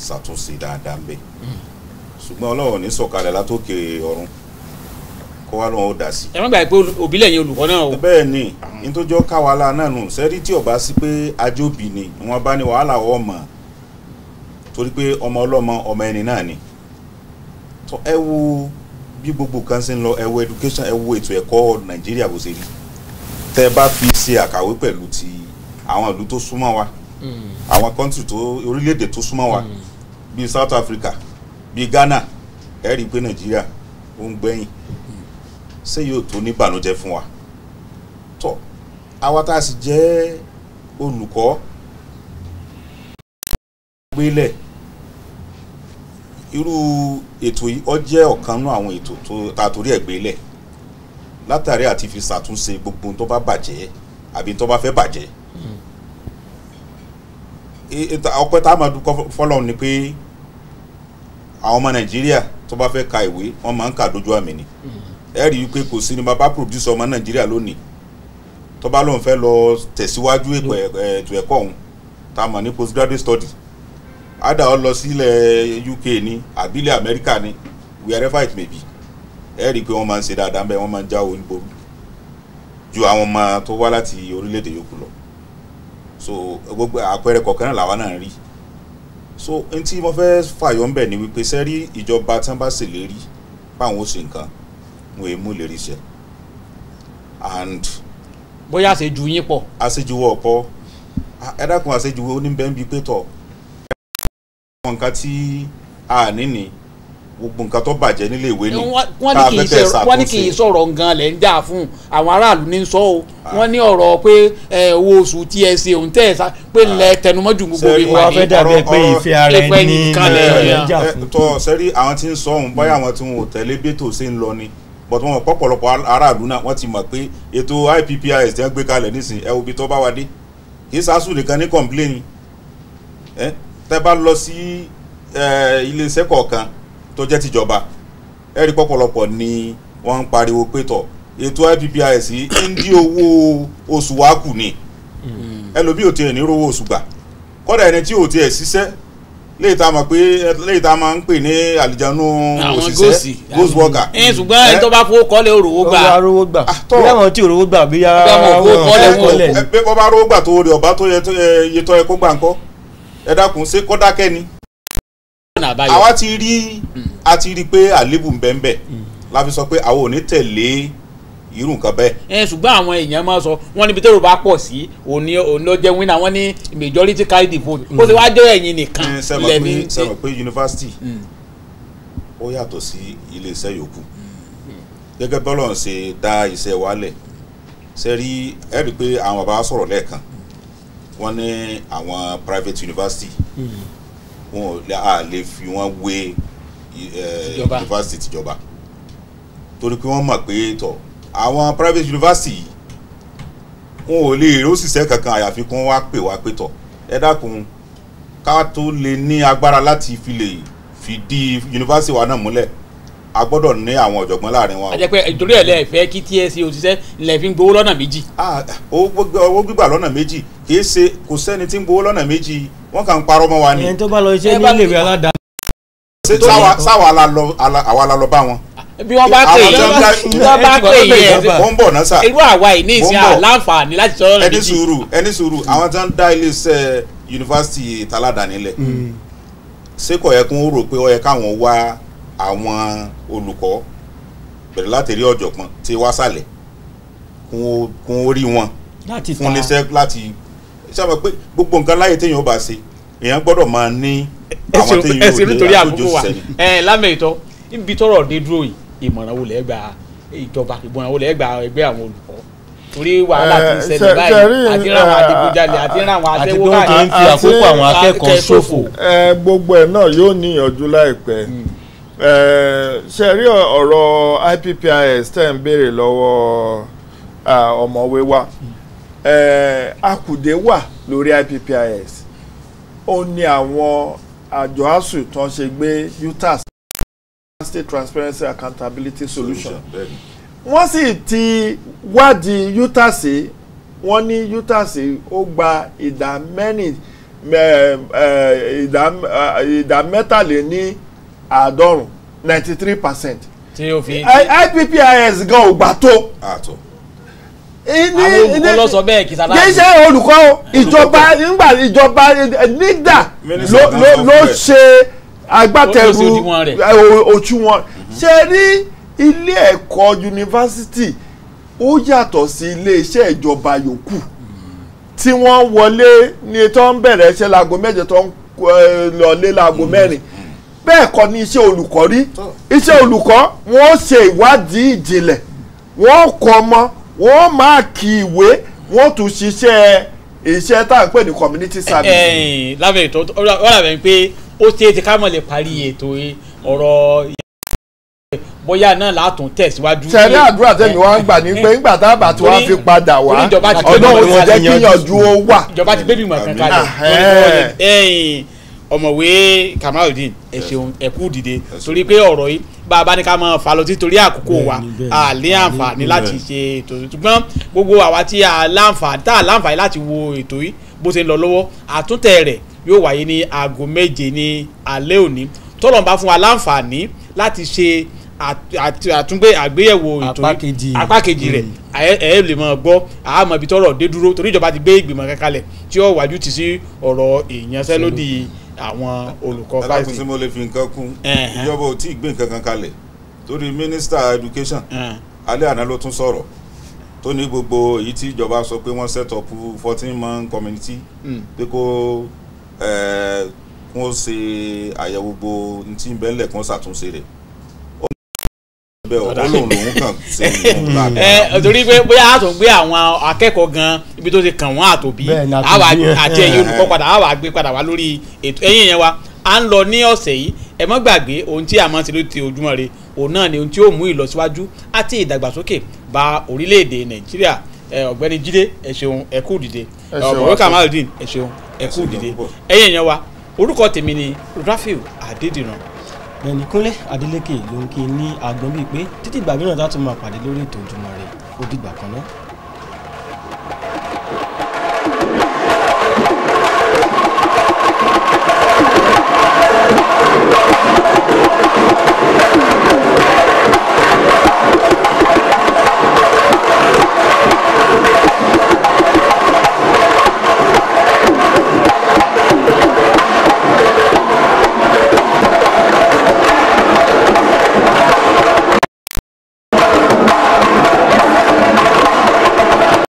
ṣàtúnṣe dáadáa ń bẹ̀ hmm. ṣùgbọ́n ọlọ́run ní sọ̀kalẹ̀ látòkè ọ̀run kó wá lóun ó sí. ẹ má gbàgbé olùkọ́ náà o. bẹ́ẹ̀ ni nítòjọ́ náà nù ọba sí pé ajóbi ni wọn bá ní wàhálà ọmọ torí pé ọmọ ọlọ́mọ ọmọ ẹni náà ni tó ẹ gbogbo kan ṣe ń education ẹ wo ètò ẹ̀kọ́ nàìjíríà bó ṣe rí fi ṣe àkàwé pẹ̀lú ti àwọn ìlú tó súnmọ́ wa àwọn kọ́ńtì tó orílẹ̀-èdè tó súnmọ́ wa bíi South Africa bíi Ghana ẹ rí i pé Nàìjíríà ó ń gbẹ̀yìn ṣé yóò tó ní ìbànújẹ́ fún wa tó àwa tá a sì jẹ́ olùkọ́ gbélẹ̀ irú ètò yìí ó jẹ́ ọ̀kan nú àwọn ètò tó ta torí ẹ̀ gbélẹ̀ látàrí àti fi ṣàtúnṣe gbogbo tó bá bàjẹ́ àbí tó bá fẹ́ bàjẹ́ ọpẹ́ tá a máa dúpẹ́ fọ́lọ́run ni pé àwọn ọmọ nàìjíríà tó bá fẹ́ ka ìwé wọ́n máa ń kà dójú àmì ni ẹ rí i pé kò sí ni bàbá pòdùsọ ọmọ nàìjíríà lónìí tó bá lóun fẹ́ lọ tẹ̀síwájú ètò ẹ̀kọ́ òun tá a mọ̀ ní postgraduate study ada ọ lọ sílẹ̀ UK ni àbílẹ̀ Amẹ́ríkà ni wherever it may be ẹ rí i pé wọ́n máa ń ṣe dáadáa bẹ́ẹ̀ wọ́n máa ń jáwọ́ níbo ju àwọn ọmọ tó wá láti orílẹ̀ yòókù lọ so gbogbo àpẹẹrẹ kọ̀ọ̀kan náà làwa náà rí so n tí mo fẹ́ fàyọ ńbẹ̀ ni wípé sẹ́rí ìjọba tí wọ́n bá ṣèlérí báwọn ó ṣe nǹkan wọn èé mú ìlérí and. bóyá àṣejù yín pọ̀. àṣejù wọ̀ pọ̀ ẹ dákun àṣejù oníbẹ̀ ń bi pé tọ̀ ẹ dákun nǹkan tí a ní ni. Ah, gbogbo nǹkan tó bàjẹ́ nílé ìwé ni ká fẹ́ tẹ̀ ṣàkóso. wọ́n ní kì í sọ̀rọ̀ nǹkan lẹ̀ ń dà fún àwọn aráàlú ní sọ o ah. wọ́n ní ọ̀rọ̀ pé owó oṣù tí ẹ ṣe òun tẹ̀ ṣá pé ah. lẹ tẹnumọ́jú gbogbo ìwà ni. sẹ́rí wọ́n fẹ́ dàbí ẹ pé ìfẹ́ ara ẹni ní eh, tọ́ sẹ́rí àwọn tí ń sọ òun báyà wọn tí wọn ò tẹ̀lé bẹ́tò ṣe ń lọ ni bọ̀tún wọn pọ̀pọ̀lọpọ̀ aráàlú náà wọ́n ti mọ̀ pé ètò IPPIS ti ń gbé kalẹ̀ nísìn ẹ obi tó bá wa dé kì í sásù nìkan ní kọ̀ǹpléènì eh, tẹ́ bá lọ sí eh, iléeṣẹ́ kọ̀ọ̀kan tó jẹ́ tìjọba ẹ̀rí pọ̀pọ̀lọpọ̀ ni wọ́n ń pariwo pé tọ̀ ètò IPPIS ń dí owó oṣù wa kù ni hmm. ẹlòmíì ò tiẹ̀ ní rówó oṣù gbà kọ́dà ẹni tí ò tiẹ̀ ṣiṣẹ́ léyìí tá a mọ̀ pé léyìí tá a máa ń pè ní àlìjánu òṣìṣẹ́ ghost worker. ẹ eh, ṣùgbọ́n ẹni tó bá fowó kọ́lé òrówó gbà. ó ah, rówó gbà bí àwọn tí òrówó gbà bí kọ́lé. wọ́n eh, bá rówó gbà tó rí tó yẹ tó yẹ tó yẹ kó gbà ńkọ́ ẹ dákun ṣé kọ́dákẹ́ ni. àbáyọ àwa ti rí a ti rí pé àlébù ń bẹ́ẹ̀ bẹ́ẹ̀ hmm. la fi sọ pé àwọn ò ní tẹ̀lé irú nǹkan bẹ́ẹ̀. ẹ ṣùgbọ́n àwọn èèyàn máa sọ wọ́n níbi tẹ́rù bá pọ̀ sí òní ònlọ́jẹ́ wínà wọ́n ní majority carry the vote ó ti wá jẹ́ ẹ̀yìn nìkan hmm, lẹ́mí. sẹ́wọ̀n pé yunifásitì hmm. ó yàtọ̀ sí iléeṣẹ́ yòókù gẹ́gẹ́ bọ́lọ̀ ń ṣe dá iṣẹ́ wálẹ̀ ṣe rí ẹ pé àwọn bàbá sọ̀rọ̀ lẹ́ẹ̀kan wọ́n ní àwọn private university. Mm -hmm wọn à lè fi wọn wé yunifásitì eh, tìjọba torí pé wọ́n mọ̀ pé tọ̀ àwọn private university yìí wọn ò lè rí òṣìṣẹ́ kankan àyàfi kí wọ́n wá pè wá pé tọ̀ ẹ dákun ká tó lè ní agbára láti fi lè fìdí yunifásitì wa náà múlẹ̀ a gbọ́dọ̀ ní àwọn ọ̀jọ̀gbọ́n láàrin wọn. àjẹpẹ ìtòrí ẹ̀ lẹ fẹ́ kí TSC e òṣìṣẹ́ lẹ fi ń gbowó lọ́nà méjì. Ah, owó gbígbà lọ́nà méjì kì í ṣe kò sẹ́ni tí ń gbowó lọ́nà méjì wọ́n kàn ń parọ́ mọ́ wa ni. ẹni tó bá lọ iṣẹ́ ní ilé ìwé aládàáni. ṣé sáwọ àwa la lọ bá wọn. bí wọ́n bá pè yẹ wọ́n bá pè yẹ wọ́n ń bọ̀ náà sà. irú àwa yìí ní ìsìn àláǹfààní láti sọ̀rọ̀ rẹ̀ méjì. ẹni sùúrù ẹni sùúrù àwọn tó ń dá iléeṣẹ́ yunifásitì taládàáni lẹ̀ mm. ṣé kò yẹ kó rò pé ó yẹ káwọn wá àwọn olùkọ́ bẹ̀rẹ̀ láti rí ọ̀jọ̀gbọ́n tí wá sálẹ̀ kún rí wọn fún iléeṣẹ́ láti sábà pé gbogbo nǹkan láyé téèyàn ó bá ṣe èèyàn gbọ́dọ̀ máa ní àwọn téèyàn yóò dé àkójọ sẹ́ni. ẹ lámẹ̀ ìtọ́ ibi tọ́rọ̀ dé dúró yìí ìmọ̀ràn wo lẹ́gbà ìjọba ìmọ̀ràn wo lẹ́gbà ẹgbẹ́ àwọn olùkọ́ torí wàhálà ti ṣẹlẹ̀ báyìí àti ràwọn adigunjalè àti ràwọn àtẹwọ́ àti fi àkókò àwọn akẹ́kọ̀ọ́ ṣòfò. gbogbo ẹ̀ náà yóò níyànjú láìpẹ́ hmm. ṣe rí ọ̀rọ̀ IPPIS tẹ̀ ń béèrè lọ́wọ́ ọmọwé wa. Hmm. Eh, akùdé wà lórí IPPIS ó ní àwọn àjọ asuu tó ń ṣe gbé utas state transparency accountability solution wọ́n sì ti wádìí utas wọ́n ní utas ó gba ìdá mẹ́rin eh, eh, ìdá mẹ́tàléní àádọ́rùn-ún ninety three percent IPPIS gan ò gbà tó àwọn olùkọ́ lọ sọ bẹ́ẹ̀ kì í sáláàbù. kì í ṣe olùkọ́ ìjọba nígbà ìjọba nígbà ló ṣe agbátẹrù òṣùwọ̀n ṣe rí ilé ẹ̀kọ́ yunifásitì ó yàtọ̀ sí ilé iṣẹ́ ìjọba yòókù tí wọ́n wọlé ní tó ń bẹ̀rẹ̀ iṣẹ́ láago mẹ́jọ tó ń lọlé láago mẹ́rin bẹ́ẹ̀ kọ́ ni iṣẹ́ olùkọ́ rí iṣẹ́ olùkọ́ wọ́n ṣe ìwádìí ìjìnlẹ̀ wọ́n kọ́ ọmọ wọ́n máàkì ìwé wọ́n tún ṣiṣẹ́ iṣẹ́ tá à ń pè ní community service. Eh, eh, lábẹ́ ètò ọ̀rọ̀ àbẹ̀ ń pé ó ṣe é ti ká mọ̀ lè parí ètò ọ̀rọ̀ bóyá náà látún tẹ̀síwájú. sẹ́ni àdúrà tẹ̀mí wá ń gbà ní pé ńgbà eh, tá a bá tí wọ́n fi padà wá ọ̀nà òun jẹ́ kíyànjú ó wà. ìjọba ti gbé bímọ kankan lọ ọmọwé Kamaludin ẹ ṣeun ẹ kú dìde torí pé ọ̀rọ̀ yìí bá a bá ní ká máa fà lọ títorí àkókò wa a lè àǹfààní láti ṣe ètò ṣùgbọ́n gbogbo àwa tí a láǹfààní tá a láǹfààní láti wo ètò yìí bó ṣe ń lọ lọ́wọ́ àtúntẹ̀ rẹ̀ yóò wáyé ní aago méje ní alẹ́ òní tọ́lọ̀ ń bá fún wa láǹfààní láti ṣe àtúngbé àgbéyẹ̀wò ìtòrí apá kejì rẹ̀ mm. ẹ lè mọ̀ gbọ́ àmọ́ ibi tọ́rọ̀ dé dúró torí ìjọba ti gbé ìgbìmọ̀ kankanlẹ̀ tí ó wájú ti sí ọ̀rọ̀ ìyanṣẹ́lódì àwọn olùkọ́ five. alákùnsí mo lè fi nǹkan kún ìjọba ò tí ì gbé nǹkan kan kalẹ̀ torí mínísítà education alẹ́ àná ló tún sọ̀rọ̀ tó ní gbogbo èyí tí ìjọba sọ pé wọ́n set up fourteen man community hmm. pé kó eh, kún ó ṣe àyẹ̀wò gbogbo ní tí ń bẹ́ńlẹ̀ kún ó ṣàtúnṣe rẹ̀ bẹ́ẹ̀ o ó lòun lòun kàn sí ìlú lábẹ́. ẹ torí pé bóyá a tún gbé àwọn akẹ́kọ̀ọ́ gan ibi tó ti kàn wọ́n àtòbí àwa àti ẹ̀yin olùkọ́ padà àwa gbé padà wá lórí ètò ẹ̀yìn yẹn wa à ń lọ ní ọ̀sẹ̀ yìí ẹ má gbàgbé ohun tí a máa ń ṣe ló ti ojúmọ́ re òun náà ni ohun tí ó mú ìlọsíwájú àti ìdàgbàsókè bá orílẹ̀-èdè nàìjíríà ọ̀gbẹ́ni jíde ẹ ṣeun ẹ kú dìde ọ̀gbẹ́ni kamaludin ẹ ṣeun ẹ kú dìde ẹ̀yin yẹn wa orúkọ tèmi ni rafiu adédìran Gbẹ̀nì Kúnlé Adélékè ló ń kí ní agbọ́n bíi pé títí ìgbà mìíràn tá a tún máa pàdé lórí ètò Ojúmọ́ Ire ó dìgbà kan náà.